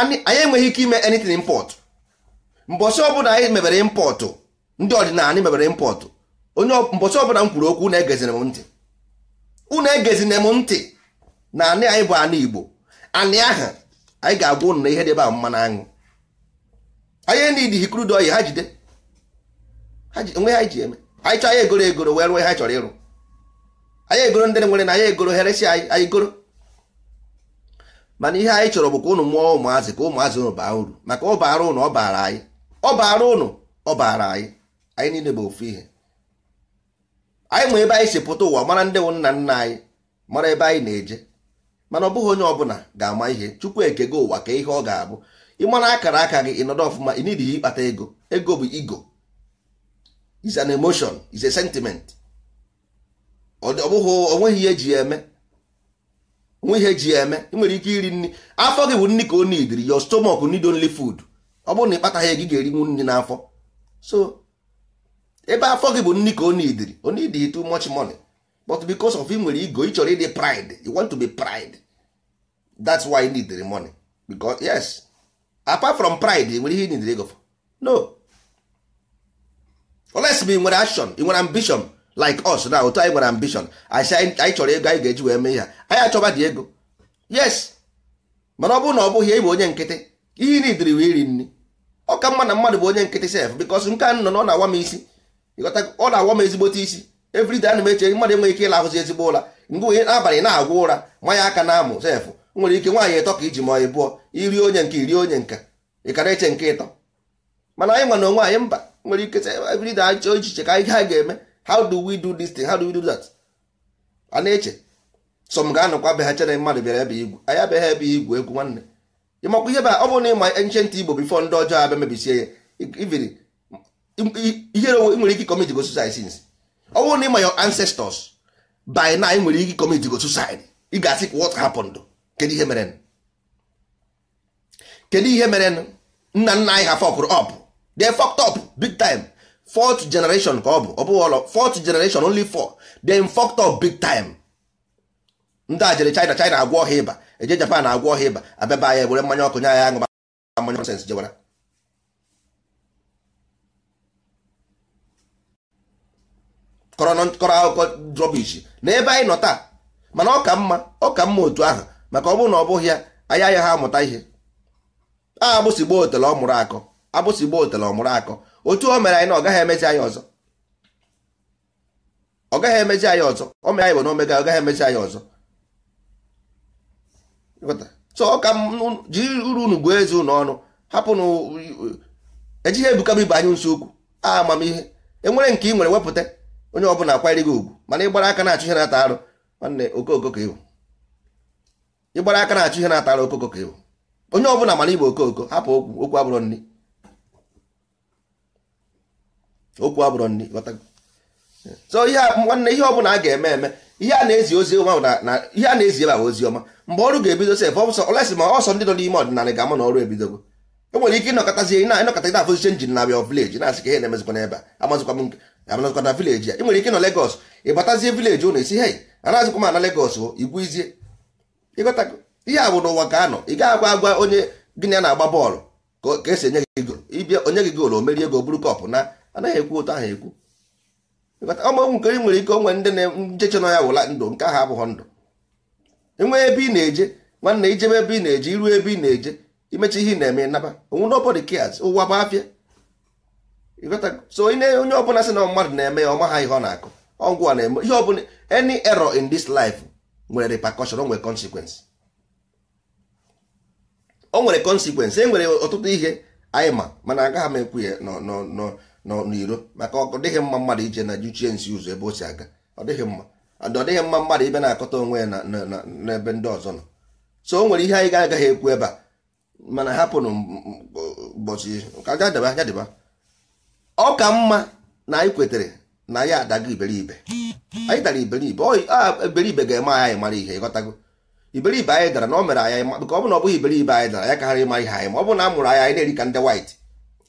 anyị enweghị ike ime anything import mbọsị ọbụla anyị mebere impọtụ ndị ọdịnala mebere impọtụ onye mbọsị ọbụla m kwuru okwu unu egezine m ntị unu egezine m ntị na anị anyị bụ anị Igbo anị ahụ anyị ga-agwa unu na ihe debe mma na aṅụ anyị nidi hikrudo oyi ha jide onwe ha ji eme anyị chọọ anyị egoro egoro wee rụọ ha chọrọ ịrụ anyị egoro ndị nwere na anyị egoro heresi anyị anyị goro mana ihe anyị chọrọ bụ ka ụnụ mụọ ụmụazị ka ụmụazị ụnụ baa uru maka ọ baara ụnụ ọ baara anyị ọ baara ụnụ ọ baara anyị anyị niile bụ ofu ihe anyị ma ebe anyị si pụta ụwa mara ndị nna nna anyị mara ebe anyị na-eje mana ọ bụghị onye ọbụla ga-ama ihe chukwu ekego ụwa ka ihe ọ ga-abụ ịmara akara aka gị ịnọdụ ọfụma ị n'ihi ịkpata ego ego bụ ego is an emotion is a sentiment ọ bụghị onweghị ihe eji eme onwe ihe eji eme ị nwere ike iri nri afọ gị bụ nri ka o nidiri your stomach need only food ọ bụrụ na ịkpataghị ego ị ga-erinwu nri n'afọ so ebe afọ gị bụ nri ka onidiri onidi too much money but because of nwere ego ị chọrọ ịdị pride you want to be pride that's why you need the money because yes apart from pride nwere ihe need ego for no unless ị nwere action ị nwere ambition like us na otu anyị nwere ambition anyị chọrọ ego anyị ga-eji wee mee ihe anyị achọba dị ego yes mana ọ bụrụ na ọ bụghị ị bụ onye nkịtị ihe niile wee iri nri ọ ka mma na mmadụ bụ onye nkịtị sef bikos nke a nọ na ọ na-awa m isi ọ na-awa m ezigbote isi everide na m eche mmadụ enweghị ike ịlahụzi ezigbo ụra mgbe onye abalị na-agwụ ụra manya aka na-amụ sef nwere ike nwaanyị ịtọ ka iji ma ị bụọ iri onye nke iri onye nke ị kara eche nke ịtọ mana anyị nwa na onwe anyị mba nwere ike anyị achọ echiche ka anyị ha ga-eme how do we do this thing how do we do that a na-eche sọ m ga-anọkwa be ha chere mmadụ bịara ebe igwu anyị abịaghị ebe igwu egwu nwanne ịmakwa ihe ba ọ bụrụ na ịma ancient igbo bifo ndị ọjọọ abịa mebisie ya iviri ihere ị nwere ike commit go suicide since ọ bụrụ na ịma your ancestors by na ị nwere ike commit go suicide ị ga-asị what happened kedu ihe mere kedu ihe mere nna nna anyị ha fọkụrụ up they fucked up big time fourth generation ka ọ bụ ọ bụghị ọlọ fourth generation only four they fucked up big time ndị a jere China China agwọ ọha ịba eje Japan agwọ ọha ịba abịaba anya were mmanya ọkụ nye anya aṅụ mmanya nọnsens jewara kọrọ akụkọ drobish na ebe anyị nọ taa mana ọ ka mma ọ ka mma otu ahụ maka ọ bụrụ na ọ bụghị ya anyị anya ha amụta ihe a gboo otele ọ mụrụ akọ agbụsị gboo otele ọ mụrụ akọ otu o mere anyị na ọ gaghị emezi anyị ọzọ ọ gaghị emezi anyị ọzọ o mere anyị bụ na omega ọ gaghị emezi anyị ọzọ chọọ ka jiri uru unu gụọ eze ụnụ ọnụ hapụnụ ejighị ebukaba ibe anyị nso okwu amamihe enwere nke ị nwere wepụta onye ọ ọbụla akwanyere gị ugwu mana ịgbara aka na-achụ ihe na-ata arụ nwanne okoko ka ịbụ ịgbara aka na-achụ ihe na-ata arụ okoko ka ịbụ onye ọ ọbụla mara igbo okoko hapụ okwu okwu abụrụ nri okwu abụrụ nri so ihe nwanne ihe ọbụla a ga-eme eme ihe a na-ezi ozi ọma na ihe a na-ezi ebe ahụ ozi ọma mgbe ọrụ ga-ebido sef ọsọ olesi ma ọsọ ndị nọ n'ime ọdịnala ga-ama na ọrụ ebidogo e nwere ike ịnọkọtazi na ịnọkọta gị na-afụziche na bịa vileji na-asị ka ihe na-emezikwa n'ebe a amazikwa na vileji a e nwere ike nọ Legọs ịbatazie vileji ụnụ isi hei anazikwa m ana Legọs igwu izie ịghọtago ihe a bụ n'ụwa ka anọ ị gaghị agwa agwa onye gịnị a na-agba bọọlụ ka esi enye gị ịbịa onye gị gol o merie ego buru kọpụ na anaghị ekwu otu ahụ ekwu ọmụ nke nwere ike onwe ndị na-njeche nọ ya wụla ndụ nke ahụ abụghị ndụ enwee ebe ị na-eje nwanne ijebe ebe ị na-eje iru ebe ị na-eje imecha ihe na-eme naba onwe nobody cares ụwa bụ afịa so onye ọbụla sị na mmadụ na-eme ya ọma ha ihe ọ na-akụ ọgwụ na-eme ihe ọbụla any error in this life nwere repercussion o nwere consequence o nwere consequence e nwere ọtụtụ ihe anyị ma mana agaghị m ekwu ya nọ n'iro maka ọ dịghị mma mmadụ ije na juchie nsi ụzọ ebe o si aga ọ dịghị mma ọ dịghị mma mmadụ ibe na-akọta onwe ya n'ebe ndị ọzọ nọ so o nwere ihe anyị ga-agaghị ekwu ebe a mana hapụnụ ụbọchị ọ ka mma na anyị kwetere na ya adago iberibe anyị dara iberibe iberibe ga-eme anyị mara ihe ịghọtago iberibe anyị dara na o mere anyị maka ọ bụ na ọ bụghị iberibe anyị dara anyị kaghara ịma ihe anyị ma ọ bụ na a mụrụ anyị anyị na-eri ka ndị white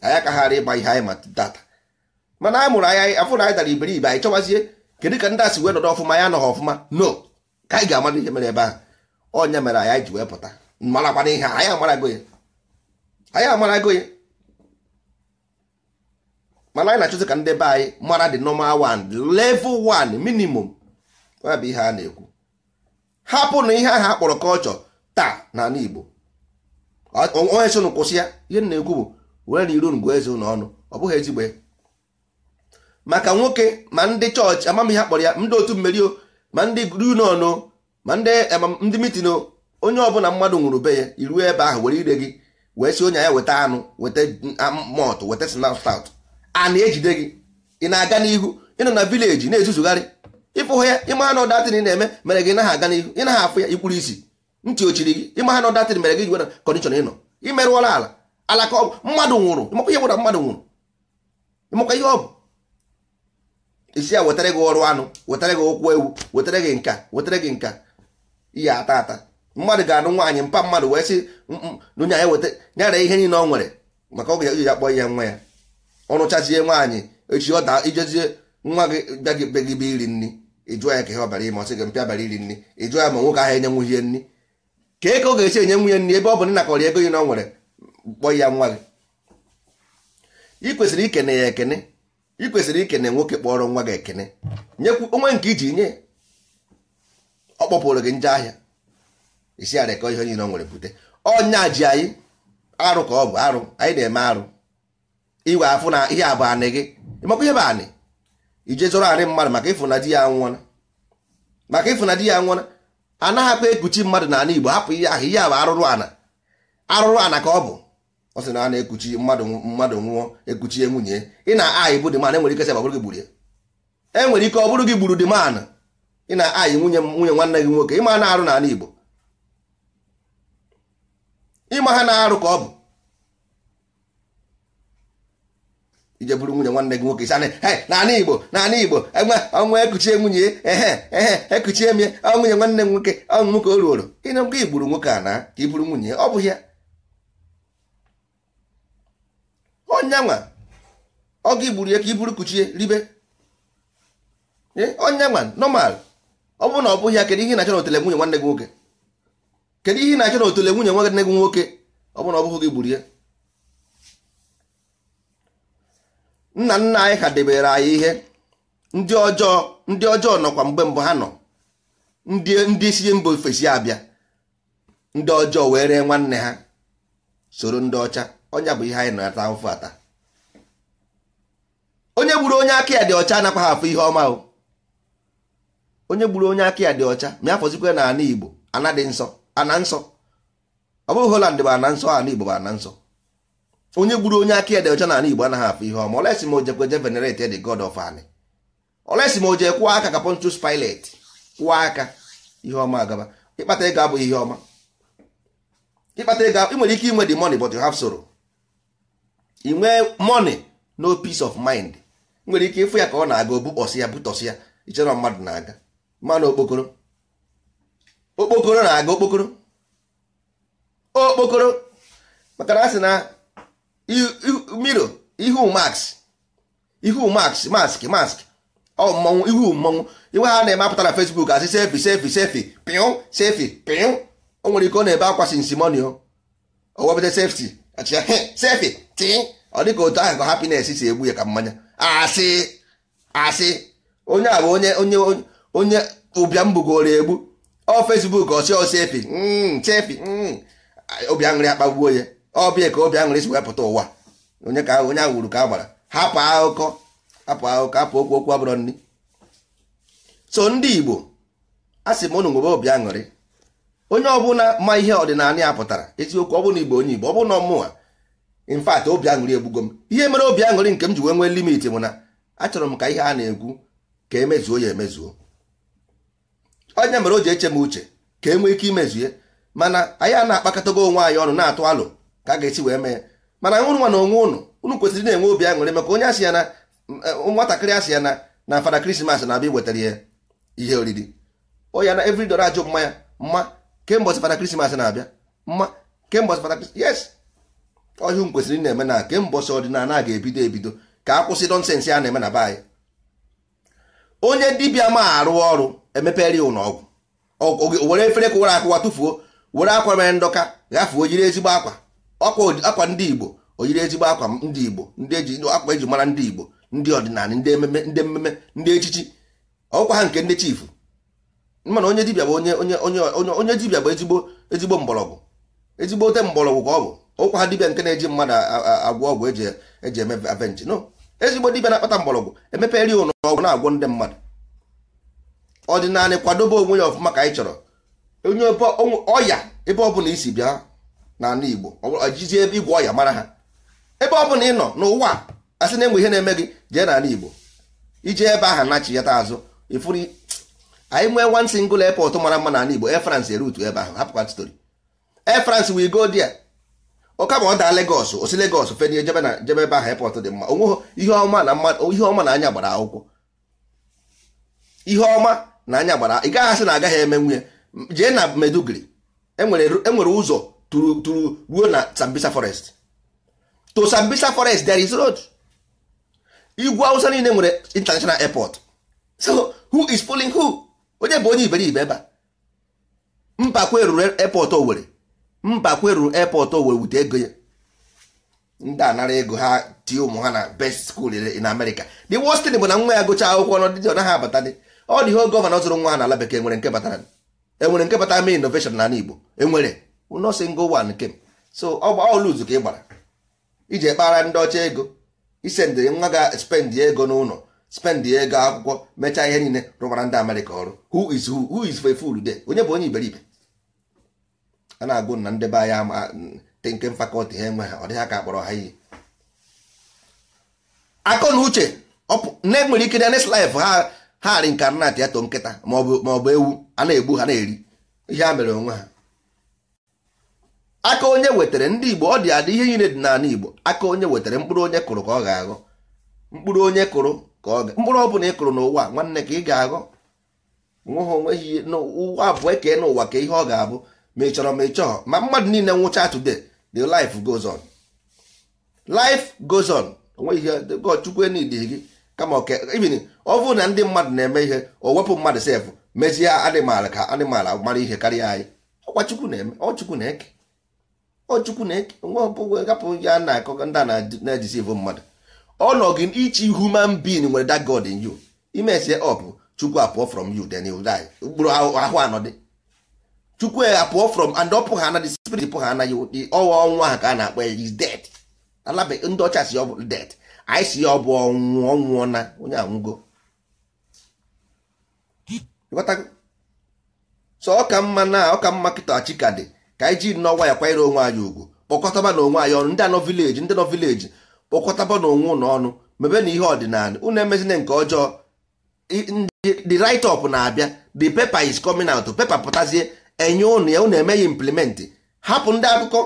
anyị akaghara ịma ihe anyị ma data mana a mụrụ anya afụ na anyị dara iberibe anyị chọwazie kedu ka ndị asị wee nọdụ ọfụma ya anọghị ọfụma no ka anyị ga-amara ihe mere ebe ahụ onye mere anyị ji wee pụta marakwana ihe anyị amarago ya anyị amarago ya mana anyị na-achọzi ka ndị be anyị mara dị nọma one level one minimum ya bụ ihe a na-ekwu hapụ na ihe ahụ akpọrọ kọlchọ taa na n'ala Igbo onye so kwụsị ya ihe na-ekwu bụ were na iru ngwa eze ụlọ ọnụ ọ bụghị ezigbo maka nwoke ma ndị chọọchị amamihe akpọrọ ya ndị otu mmeri o ma ndị grunonụ ma ndị mitino onye ọbụla mmadụ nwụrụ be ya iruo ebe ahụ were ire gị wee si onye ya weta anụ weta mọt weta snaut a na-ejide gị ị na-aga n'ihu ịnọ na vileji na-ezuzugharị ịfụhụ ya ịma na ọdatịn ị na-eme mere gị naghị aga n'ihu ị naghị afụ ya ikpuru isi ntị ochiri gị ịma na ọdatịn mere gị jiwere kọndishọn ịnọ imerụọla ala alaka ọgwụ mmadụ nwụrụ ịmakwa ihe gwara mmadụ nwụrụ ịmakwa ihe ọ isi ya wetara gị ọrụ anụ wetara gị okwu ewu wetara gị nka wetara gị nka ihe ata ata mmadụ ga-anụ nwaanyị mpa mmadụ wee si mm, mm, nụnya ya weta nyara ihe niile ọ nwere maka oge iji ya kpọọ ihe nwa ya ọrụchazie nwaanyị echi ọ daa ijezie nwa gị bịagị gị be iri nri ịjụọ ya ka ihe ọbara ime ọsị gị mpịa bara iri nri ịjụọ ya ma nwoke ahụ enye nwunye nri ka eke ọ ga-esi enye nwunye nri ebe ọ bụ nna kọrọ ego ihe na ọ nwere kpọọ ya nwa gị ị ikene ya ekene ị kwesịrị ikene nwoke kpọrọ nwa gị ekene nyekwu onwe nke iji nye ọ kpọpụrụ gị nje ahịa isi ara ka ihe niile ọ nwere bute ọnya ji anyị arụ ka ọ bụ arụ anyị na-eme arụ iwe afụ na ihe abụ anị gị ịmakwa ihe bụ anị ije zụrụ anị mmadụ maka ịfụ di ya nwụọna maka ịfụ na di ya nwụọna anaghị akpa ekuchi mmadụ na Igbo hapụ ihe ahụ ihe abụ arụrụ ana arụrụ ana ka ọ bụ ọ sị na a na-ekuchi mmadụ mmadụ nwụọ ekuchie nwunye ị na-ayị bụ dịman enwere ike sị bụrụ gị gburu ya enwere ike ọ bụrụ gị gburu dịman ị na-ayị nwunye nwunye nwanne gị nwoke ịma na-arụ n'ala Igbo ịma ha na-arụ ka ọ bụ ije bụrụ nwunye nwanne gị nwoke he! n'ala Igbo n'ala Igbo enwe ọnwa e ekuchie nwunye ehe ehe ekuchie m ya nwunye nwanne m nwoke ọnwụ nwoke o ruoro ịna gị gburu nwoke a na ka i bụrụ nwunye ọ bụ ya onye nwa ọ gị gburu ya ka i buru kuchie ribe onye nwa nọmal ọ bụrụ na ọ bụghị ya kedu ihe na-achọ n'otele nwunye nwanne gị nwoke kedu ihe na-achọ n'otele nwunye nwanne gị nwoke ọ bụ na ọ bụghị gị gburu ya nna nna anyị ha debere anyị ihe ndị ọjọọ ndị ọjọọ nọkwa mgbe mbụ ha nọ ndị ndị isi mba ofesi abịa ndị ọjọọ were nwanne ha soro ndị ọcha ọnya bụ ihe anyị na-ata ụfụ ata onye gburu onye aka ya dị ọcha anakwa ha afọ ihe ọma o onye gburu onye aka ya dị ọcha ma afọzikwa na ana igbo ana dị nsọ ana nsọ ọ bụghị Holland bụ ana nsọ ana igbo bụ ana nsọ onye gburu onye aka ya dị ọcha na ana igbo anaghị afọ ihe ọma olesi ma ojekwa je venerate the god of ani olesi ma oje kwụọ aka ka Pontius Pilate kwụọ aka ihe ọma agaba ịkpata ego abụghị ihe ọma ịkpata ego ị nwere ike inwe the money but you have sorrow i nwee money no peace of mind nwere ike ịfụ ya ka ọ na-aga obukpọsị ya butọsị ya ichere mmadụ na-aga mmanụ okpokoro okpokoro na-aga okpokoro okpokoro maka na sị na miro ihu mask ihu max mask mask ọ mmọnwụ ihu mmọnwụ iwe ha na-eme apụtara na Facebook asị sefi sefi sefi pịụ sefi pịụ o nwere ike ọ na-ebe akwa sinsimoni o sefti achịa sefi tị ọ dịka otu ahụ ka happiness si egbu ya ka mmanya asị asị onye a bụ onye onye onye ụbịam bugoro egbu ọ Facebook ọsị ọsị efi chefi hmm, hmm. obi aṅụrị akpagbuo ya ọbịa ka obi aṅụrị si wepụta ụwa onye ka onye ahụ ka agbara hapụ akụkọ hapụ akụkọ hapụ okwu okwu abụrọ nri so ndị Igbo a sị m ụnụ nwebe obi aṅụrị onye ọbụla ma ihe ọdịnala ya pụtara eziokwu ọ bụla Igbo onye Igbo ọ bụla ọmụwa in obi aṅụrị egbugo m ihe mere obi aṅụrị nke m ji wee nwee limit bụ na achọrọ m ka ihe a na egwu ka emezuo ya emezuo onye mere o ji eche m uche ka e nwee ike ye mana anyị a na-akpakọtago onwe anyị ọnụ na-atụ alụ ka a ga-esi wee mee mana nwụrụ nwa na onwe ụnụ unu kwesịrị na-enwe obi aṅụrị maka onye asị ya na nwatakịrị asị ya na na fada krismas na-abịa iwetara ya ihe oriri onye na evri dọrọ ajụ mmanya mma kemgbe fada krismas na-abịa mma kemgbe fada krismas yes ọhịa kwesịrị na-eme na kemgbe ọsọ ọdịnala ga-ebido ebido ka a kwụsị nọnsensị a na-eme na be anyị onye dibịa ma arụ ọrụ emepere ya ụlọ ọgwụ were efere ụra akụwa tụfuo were akwa mere ndọka ghafuo oyiri ezigbo akwa akwa ndị igbo oyiri ezigbo akwa ndị igbo ndị eji akwa eji mara ndị igbo ndị ọdịnala ndị ememe ndị ememe ndị echichi ọkwa ha nke ndị chifu mana onye dibịa bụ onye onye onye onye dibịa bụ ezigbo ezigbo mgbọrọgwụ ezigbo ote mgbọrọgwụ ka ọ bụ ụkwa dibịa nke na-eji mmadụ agwọ ọgwụ eji eme avenji no ezigbo dibịa na-akpata mgbọrọgwụ emepere ụlọ ọgwụ na-agwọ ndị mmadụ ọdịnala kwadobe onwe ya ọfụma ka anyị chọrọ onye ọya ebe ọbụla isi bịa n'ala Igbo ojizi ebe igwe ọya mara ha ebe ọbụla ị nọ n'ụwa a sị na-enwe ihe na-eme gị jee n'ala Igbo ije ebe aha nachiyata azụ ifuru anyị nwee one single airport mara mma n'ala Igbo Air France erutu ebe ahụ hapụkwa story Air France we go there oka ma ọ daa Lagos osi Lagos fenye jebe na jebe ebe ahụ airport dị mma onwe ihe ọma na anya gbara akwụkwọ ihe ọma na anya gbara ị gaghị asị na agaghị eme nwunye jee na medugri enwere e ụzọ tụrụ ruo na Sambisa forest to Sambisa forest there is road igwu awụsa niile nwere international airport so who is pulling who onye bụ onye iberibe ebe a mpakwa eruru airport nwere. mba kweru airport o wute ego ya ndị anara ego ha tie ụmụ ha na best school in America the worst thing bụ na nwa ya gụcha akwụkwọ n dị ọ naghị abata ọ dị ihe gọvanọ zụrụ nwa n'ala bekee nwere nke batara enwere nke batara mee innovation na Igbo enwere nọọsụ ngo one so ọ gba ọlụzu ka ị gbara iji kpara ndị ọcha ego isendịrị nwa ga-spend ego n'ụlọ spend ego akwụkwọ mechaa ihe niile rụbara ndị Amerịka ọrụ who is who who is for there onye bụ onye iberibe a na-agụ na ndị be anyị nke fakọlti ha enwe ha ọ dịghị aka akpọrọ ha iyi akọ na uche na-enwere ike na next life ha ha reincarnate ya to nkịta maọbụ ewu a na-egbu ha na-eri ihe a mere onwe ha aka onye wetara ndị igbo ọ dị adị ihe niile dị n'ala igbo aka onye wetara mkpụrụ onye kụrụ ka ọ ga-aghọ mkpụrụ onye kụrụ ka ọ ga mkpụrụ ọ bụla ị kụrụ n'ụwa nwanne ka ị ga-aghọ nweghị onweghị n'ụwa abụọ kee n'ụwa ka ihe ọ ga-abụ ma ị chọrọ ma ị chọọ ma mmadụ niile nwụcha today the life goes on life goes on onwe ihe god chukwu enidghi gị kama ibin ọ bụrụ na ndị mmadụ na-eme ihe o wepụ mmadụ sef mezie anịmal ka anịmal mara ihe karịa anyị ọkwa chukwu na-eme ọ chukwu na-eke ọ chukwu na-eke nwa nwe gapụ ya na-akọ ndị a na-ejisivu mmadụ ọ nọ gị ichi human being nwere that god in you imesie ọ bụ chukwu apụọ from you then you die mkpụrụ ahụ anọ dị. chukwu apụọ pụọ from and ọ pụghị ana the spirit pụghị ana ya ụdị ọwa ọnwụ ahụ ka a na-akpọ ya is dead alabe ndị ọcha si ọ bụ dead anyị si ya ọ bụ ọnwụ ọnwụọ na onye anwụgo so ọ ka mma na ọ ka mma kịta chika ka anyị ji nnọọ nwa ya kwanyere onwe anyị ugwu kpọkọtaba na onwe anyị ọnụ ndị anọ vileji ndị nọ vileji kpọkọtaba na onwe ụnụ ọnụ mebe na ihe ọdịnala unu emezina nke ọjọọ the write up na-abịa the paper is coming out paper pụtazie enye ụnụ ya ụnụ eme ya hapụ ndị akụkọ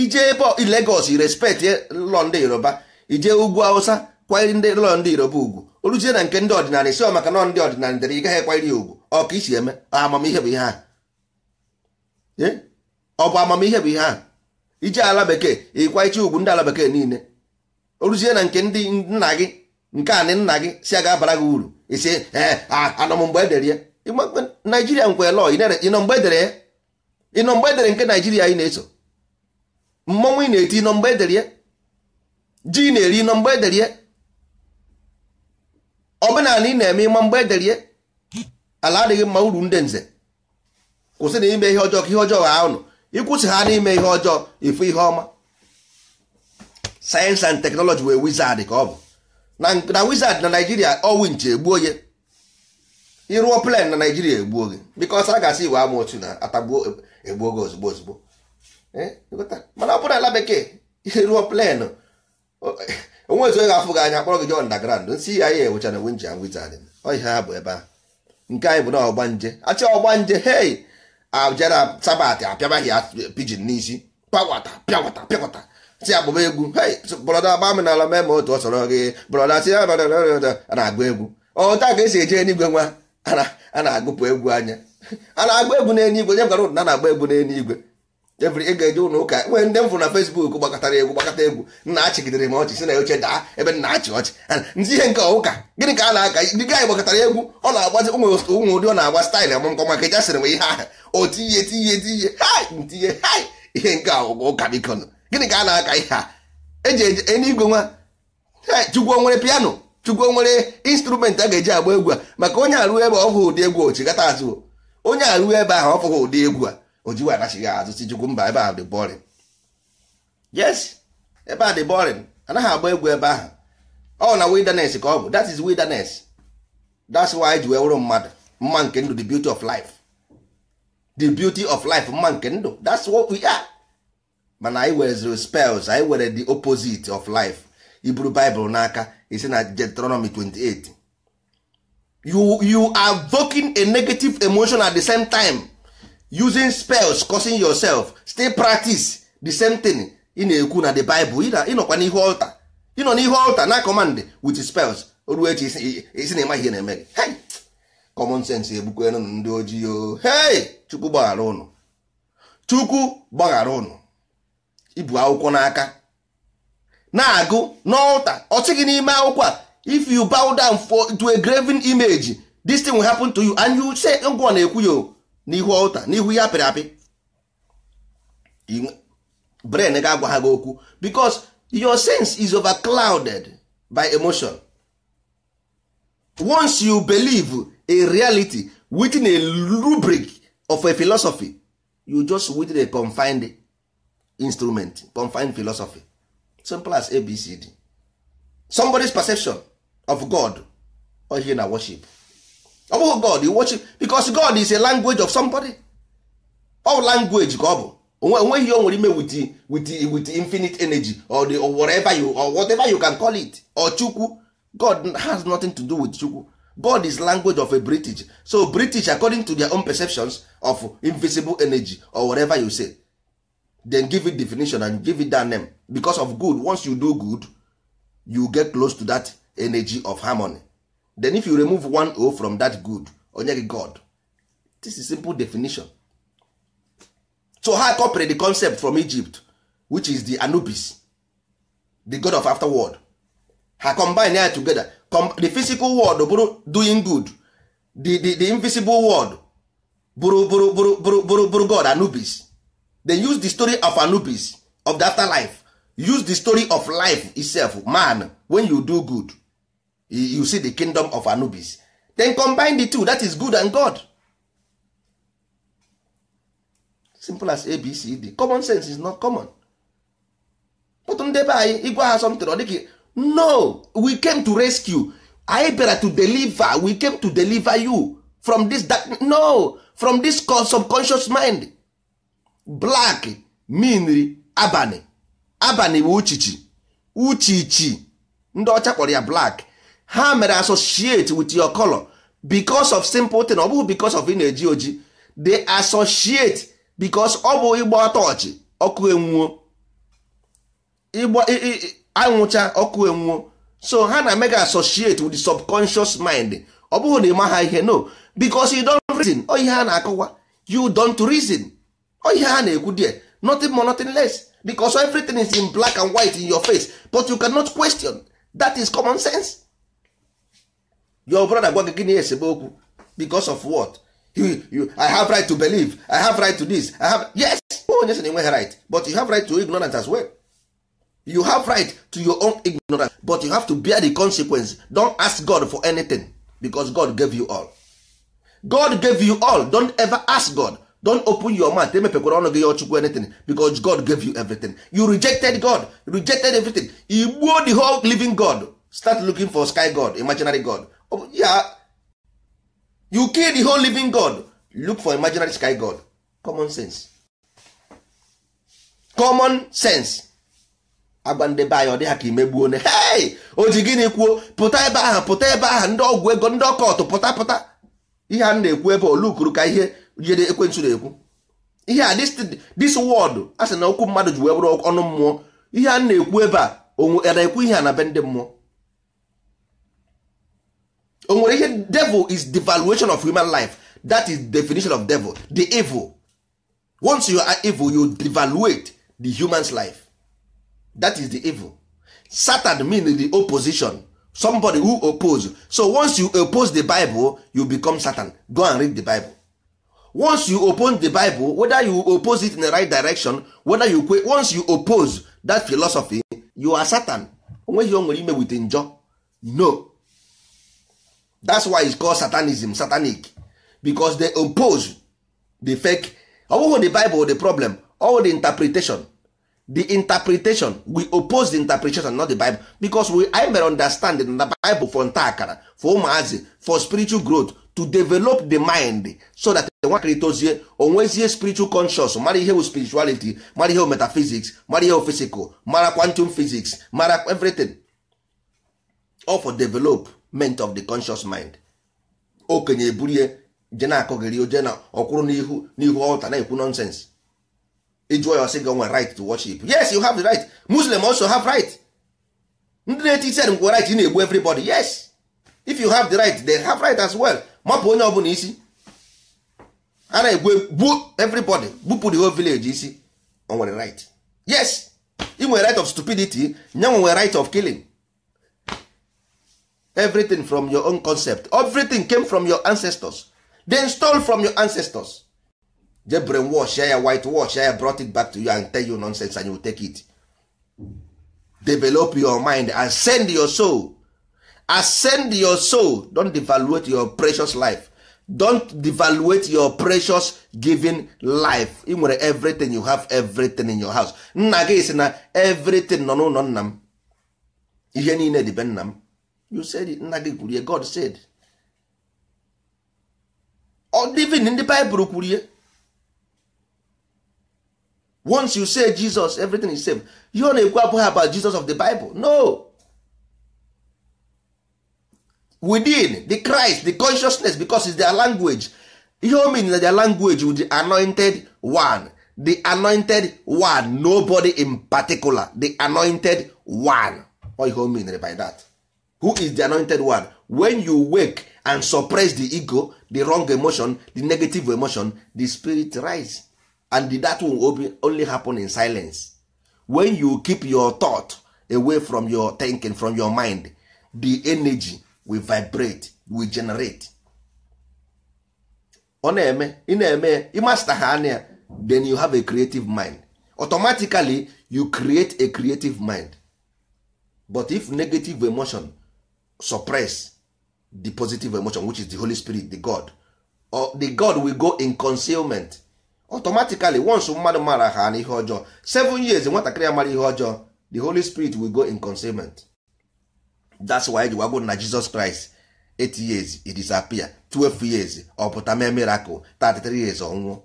ije ebe Lagos respect lọ ndị Yoruba ije ugwu Hausa kwanyere ndị ụlọ ndị Yoruba ugwu oluzie na nke ndị ọdịnala si maka nọ ndị ọdịnala dere gaghị ya ugwu ọ ka isi eme amamihe bụ ihe a ọ bụ amamihe bụ ihe a ije ala bekee ịkwanyịcha ugwu ndị ala bekee niile oluzie na nke ndị nna gị nke anị nna gị si a abara gị uru isi ee eh, ah, anọ m mgbe edere ya naijiria nkwe lọ ịnọ edere nke naijiria ị na-eso mmọnwụ ị na-eti ịnọ mgbe edere ji na-eri ịnọ mgbe edere omenala ị na-eme ịma mgbe edere ala adịghị mma uru ndị nze kwụsị na ime ihe ọjọọ ka ihe ọjọọ ha ụnụ ịkwụsị ha n'ime ihe ọjọọ ịfụ ihe ọma sayensị and teknọlọji wee wizard ka ọ bụ na wizard na naijiria ọwụ nche gbuo ya ịrụọ plan na naijiria egbuo gị bikos a ga-asị iwe ama otu na atagbuo egbuo gị ozugbo ozugbo eh, mana ọ bụrụ ala bekee ịrụọ plan eh, onwe ezu e ga afụ gị anya akpọrọ gị je ndagrand nsị ya ya ewechana ewe nji anwụ izadị ọhịa ha bụ ebe a nke anyị bụ na ọgbanje achị ọgbanje hei abjara sabat apịabaghị ya pijin n'isi pawata pịawata pịawata si agbụba egwu hei brọda gba m n'ala mee ma otu ọ sọrọ gị brọda si na-agba egwu ọ taa ka esi eje n'igwe nwa a na-agụpụ egwu anya a na-agba egwu n'enye igwe nye gwara ụdụ na na-agba egwu n'eluigwe. igwe ebiri ị eje ụlọ ụka nwere ndị m fụrụ na Fesbuk gbakọtara egwu gbakọta egwu nna achịgidere m ọchị si na oche daa ebe nna achị ọchị ndị ihe nke ụka gịnị ka a na-aka ndị gaanyị gbakọtara egwu ọ na-agbazi ụmụ ụmụ ụdị ọ na-agba staịlụ amụmkọ maka eja sịrị m ihe ahụ o tinye tinye tinye ntinye ihe nke ụgwọ ụka bikon gịnị ka a na-aka ihe a eji enye igwe nwa chukwu nwere piano chukwu nwere instrument a ga-eji agba egwu a maka onye arụ ebe ọ ụdị egwu ochigata azụ onye arụ ebe ahụ ọfụghị ụdị egwu a ojiwe anachighị azụ si chukwu mba ebe ahụ dị bọrin yes ebe a dị bọrin anaghị agba egwu ebe ahụ ọ na wilderness ka ọ bụ that is wilderness that's why e ji wee wụrụ mmadụ mma nke ndụ the beauty of life the beauty of life mma nke ndụ that's what we are mana anyị were spells anyị were the opposite of life iburu Bible n'aka isi na Deuteronomy 28 you you are evoking a negative emotion at the same time using spells causing yourself still practice the same thing ị na-ekwu na the Bible nọkwa n'ihu altar nọ n'ihu altar na command with spells oruo echi isi na ịmaghị ihe na-eme gị hey common sense egbukwenụ ndị ojii o hey chukwu gbaghara ụnụ chukwu gbaghara ụnụ ibu akwụkwọ n'aka na-agụ na ọsị n'ime akwụkwọ a if you bow down for to a graven image this thing will happen to you and you say ngwọ na-ekwu ya n'ihu ọlta n'ihu ya apịrị apị brain ga-agwa ha gị okwu because your sense is over clouded by emotion once you believe a reality within a rubric of a philosophy you just within a confined instrument confined philosophy simple as abcd somebody's perception of god or ihe na worship ọ bụghị god you worship because god is a language of somebody All language ka ọ bụ onweghị o nwere ime with with with infinite energy or the or whatever you or whatever you can call it or chukwu god has nothing to do with chukwu god is language of a british so british according to their own perceptions of invisible energy or whatever you say then give it definition and give it that name because of good once you do good you get close to that energy of harmony then if you remove one o from that good onye gị god this is simple definition so ha copied the concept from egypt which is the anubis the god of afterworld ha combine ya together Com the physical world bụrụ doing good the, the, the invisible world bụrụ bụrụ bụrụ bụrụ bụrụ god anubis then use the story of anubis of the afterlife use the story of life itself man when you do good you see the kingdom of anubis then combine the two that is good and god simple as abcd common sense is not common but ndị anyị ịgwa ha something ọ no we came to rescue anyị bịara to deliver we came to deliver you from this dark, no from this subconscious mind black mean abalị abalị bụ uchichi uchichi ndị ọcha kpọrọ ya black ha mere associate with your color because of simple thing ọ bụghị because of ị na-eji oji they associate because ọ bụ ịgba ọtọọchị ọkụ enwuo anwụcha ọkụ enwuo so ha na mega associate with the subconscious mind ọ bụghị na ịma ha ihe no because you don reason ọ ihe ha na-akọwa you don't reason ọ ihe ha na-ekwu there nothing more nothing less because everything is in black and white in your face but you cannot question that is common sense your brother gwa gị gịnị esebe okwu because of what you, you, I have right to believe I have right to this I have yes onye sị na right but you have right to ignorance as well you have right to your own ignorance but you have to bear the consequence don't ask God for anything because God gave you all God gave you all don't ever ask God don open your mouth emepekwara ọnụ gị ya ọchukwu anything because god gave you everything you rejected god rejected everything igbuo the whole living god start looking for sky god imaginary god oh, yeah. you kill the whole living god look for imaginary sky god common sense common sense agwa ndị be anyị ọ dị ha ka imegbuo ne hei o ji gịnị kwuo pụta ebe ahụ pụta ebe ahụ ndị ọgwụ ego ndị ọkọtụ pụta pụta ihe a na-ekwu ebe olukuru ka ihe ihe ekwentị na-ekwu ihe a this word a sị na okwu mmadụ ji wee bụrụ ọnụ mmụọ ihe a ekwu ebe a onwe ekwu ihe a na be ndị mmụọ o nwere ihe devil is devaluation of human life that is definition of devil the evil once you are evil you devaluate the human's life that is the evil satan mean the opposition somebody who oppose so once you oppose the bible you become satan go and read the bible once you open the bible whether you oppose it in the right direction whether you kwe once you oppose that philosophy you are satan onweghị o nwere ime with njọ no that's why it's called satanism satanic because they oppose the fake ọ the bible the problem all the interpretation the interpretation we oppose the interpretation not the bible because we I understand the bible for nta akara for umuazi for spiritual growth to develop the mind so that nwakịrị tozie onwezie spiritual conscious mara ihe bụ spirituality mara ihe bụ metaphysics mara ihe bụ physical mara quantum physics mara everything all for development of the conscious mind okenye eburie je na-akọgịrị oje na ọkwụrụ n'ihu n'ihu ọta na-ekwu nonsense ịjụọ ya sị gị onwe right to worship yes you have the right muslim also have right ndị na-eti isen ngwa right ị na-egbu everybody yes if you have the right they have right as well mapụ onye ọbụla isi a na-egwe everybody bupụ the whole village isi o nwere right yes we nwere right of stupidity nye nwere right of killing everything from your own concept everything came from your ancestors they stole from your ancestors je war ya white wash ya brought it back to you and tell you nonsense and you take it develop your mind and send your soul ascend your soul don devaluate your precious life don devaluate your precious giving life ị nwere everything you have everything in your house nna gị si na everything nọ n'ụlọ nna m ihe niile dị be nna m you said nna gị kwurie God said even ndị Bible kwurie once you say Jesus everything is same you na-ekwu abụghị about Jesus of the Bible no within the Christ the consciousness because is their language ihe o mean na their language with the anointed one the anointed one nobody in particular the anointed one what ihe o mean by that who is the anointed one when you wake and suppress the ego the wrong emotion the negative emotion the spirit rise and that will only happen in silence when you keep your thought away from your thinking from your mind the energy we vibrate we generate ọ na-eme ị na-eme ịmasta ha anya then you have a creative mind automatically you create a creative mind but if negative emotion suppress the positive emotion which is the Holy Spirit the God or the God will go in concealment automatically once mmadụ mara ha na ihe ọjọọ seven years nwatakịrị ya mara ihe ọjọọ the Holy Spirit will go in concealment that's why ji gwagwo na Jesus Christ 8 years he disappear 12 years ọ pụta mee miracle 33 years ọnwụ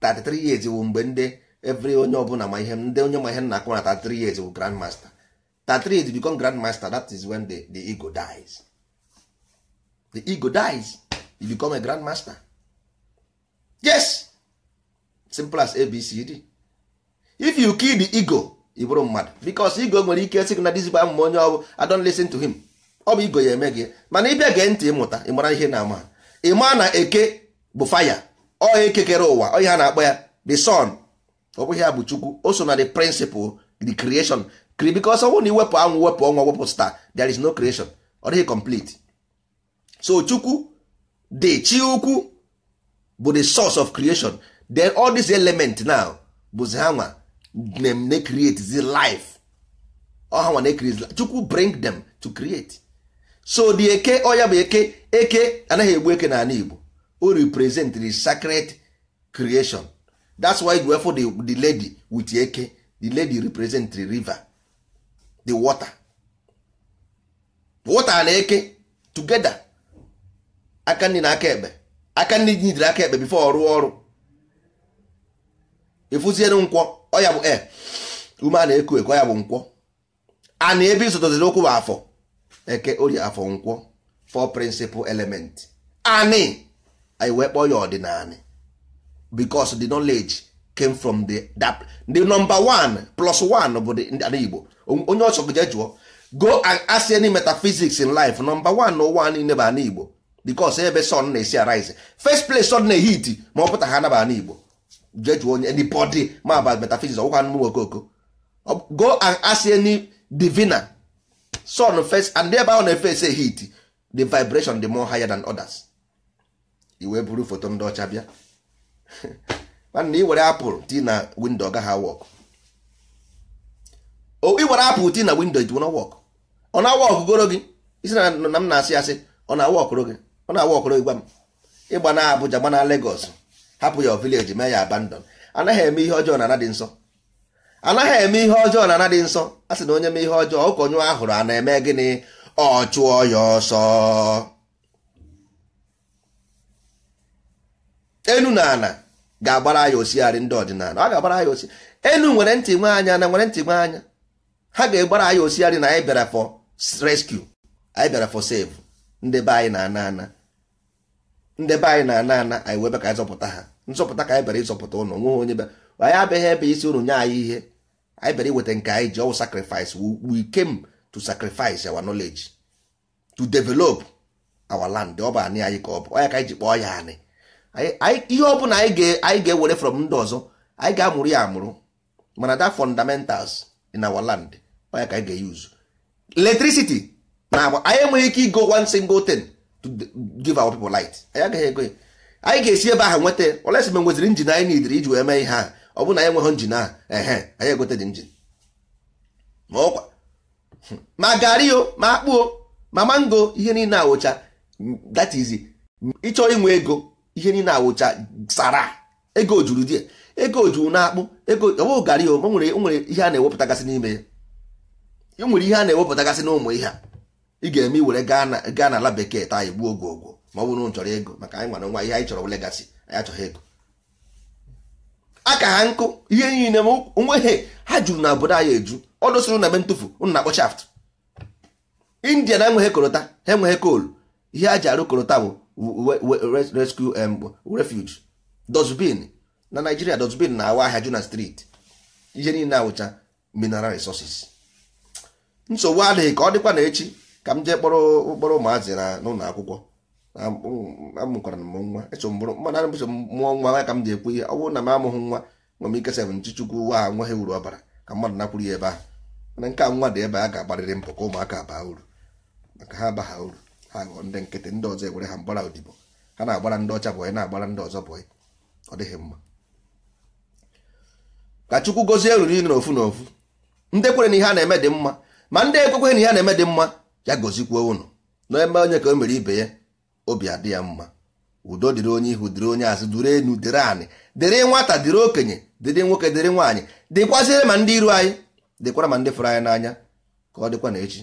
33 years wụ mgbe ndị every onye ọbụla ma ihe ndị onye ma ihe nna akụ na 33 years wụ grand master 33 years become grand master that is when the, the ego dies the ego dies you become a grand master yes simple as abcd if you kill the ego ị bụrụ mmadụ bikos igo nwere ike sị na dizigbo amụma onye ọ bụ I don't to him ọ bụ igo ya eme gị mana ịbịa gee ntị ịmụta ịmara ihe na-ama ịma na eke bụ faya ọ ekekere ụwa ọ ha na-akpọ ya the sun ọ bụghị ya bụ chukwu o so na the principal the creation bikos ọ bụrụ na iwepụ anwụ wepụ ọnwa wepụ star there is no creation ọ dịghị complete so chukwu the chi ukwu bụ the source of creation then all these elements now bụzi ha nwa dem na create zi life ọha nwa na life chukwu bring them to create so the eke ya bụ eke eke anaghị egbu eke n'ala Igbo o represent the sacred creation that's why you for the, the lady with eke the lady represent the river the water water na eke together aka nri na aka ekpe aka nri jidere aka ekpe before ọrụ ọrụ ịfụziere nkwọ ọ ya bụ e ume a na-eku eku ya bụ nkwọ a na ebe izụtaziri okwu bụ afọ eke orie afọ nkwọ four principal element Ani anyị wee kpọọ ya ọdịnanị because the knowledge came from the that the number one plus one bụ ndị Igbo onye ọchọ jee jụọ go and ask any metaphysics in life number one n'ụwa niile bụ ana Igbo because ebe sun na-esi arise first place sun na-ehiti ma ọ pụta ha anaba ana Igbo jee jụọ onye anybody ma about metaphysics ọgwụkwa anụmụ okoko go and ask any diviner sun first and ebe ahụ na-efe say heat the vibration the more higher than others iwe buru foto ndị ọcha bịa mana iwere apụl ti na windo gaghị awọk iwere apụl ti na windo it won't work ọ na-awọk goro gị isi na m na-asị asị ọ na-awọkụrụ gị ọ na-awọkụrụ gị gwa m ịgba na Abuja gba na Lagos hapụ ya vileji mee ya abandon anaghị eme ihe ọjọọ na ana nsọ anaghị eme ihe ọjọọ na ana dị nsọ a sị na onye mee ihe ọjọọ ụkọnyụ ahụrụ a na-eme gịnị ọ chụọ ya ọsọ enu na ana ga-agbara ya osigharị ndị ọdịnala ọ ga-agbara ya osi enu nwere ntị nwe anya na nwere ntị nwe anya ha ga-egbara ya osigharị na anyị bịara for rescue anyị bịara for save ndị be anyị na ana ana ndị be anyị na ana ana anyị webe ka anyị zọpụta ha nzọpụta ka anyị bịara ịzọpụta ụnụ nweghị onye bịa anyị abịaghị ebe isi ụnụ nye anyị ihe anyị bịara iweta nke anyị ji ọwụ sacrifice we came to sacrifice our knowledge to develop our land ọ bụ anị anyị ka ọ bụ ọnya ka anyị ji kpọọ ya anị ihe ọ bụla anyị ga-ewere from ndị ọzọ anyị ga-amụrụ ya amụrụ mana that fundamentals in our land ọnya ka anyị ga-use electricity na agba anyị enweghị ike igo one single thing to give our people light anyị agaghị ego ya anyị ga-esi ebe ahụ nweta olesi mgbe nweziri njin anyị n'idiri iji wee mee ihe a ọ bụrụ na anyị nweghị njin a ehe anyị egote dị njin ma ọkwa ma garị o ma akpụo ma mango ihe niile awụcha that is ịchọ inwe ego ihe niile awụcha sara ego juru die ego juru na akpụ ego ọbụ garị o nwere nwere ihe a na-ewepụtagasị n'ime ya nwere ihe a na-ewepụtagasị n'ụmụ ihe a ị ga-eme iwere gaa ala bekee taa igbuo oge ogwo ma ọ bụrụ na chọrọ ego maka anyị nwere nwa ihe anyị chọrọ legasi anyị achọghị ego aka ha nkụ ihe niile m onweghị ha juru na obodo anyị eju ọ dosoro na be ntụfu ụnụ na-akpọ shaft india na enweghị korota ha enweghị koolu ihe a ji arụ korota bụ rescue refuge dozbin na naijiria dosbin na-awa ahịa juna street ihe niile awụcha mineral resources nsogbu adịghị ka ọ dịkwa na echi ka m jee kpọrọ kpọrọ ụmụazị na n'ụlọ akwụkwọ amụkwara m nwa mmadụ mana mbụchọ mụọ nwa ya ka m ji ekwu ihe ọ bụrụ na m amụghị nwa nwa m ikesa bụ nchichukwu ụwa ha nwa ha uru ọbara ka mmadụ nakwuru ya ebe ahụ mana nke a nwa dị ebe a ga-agbarịrị mpụ ka ụmụaka baa uru maka ha bagha uru ha ghọọ ndị nkịtị ndị ọzọ ewere ha mgbara odibo ha na-agbara ndị ọcha bọyị na-agbara ndị ọzọ bọyị ọ dịghị mma ka chukwu gozie ruru niile n'ofu n'ofu ndị kwere na ihe a na-eme dị mma ma ndị ekwekweghị na ihe a na-eme dị mma ya gozikwuo unu na onye ka o mere ibe ya obi adị ya mma udo dịrị onye ihu dịrị onye azụ dịrị enu dịrị anị dịrị nwata dịrị okenye dịrị nwoke dịrị nwaanyị dịkwazịrị ma ndị iru anyị dịkwara ma ndị fụrụ anyị n'anya ka ọ dịkwa na echi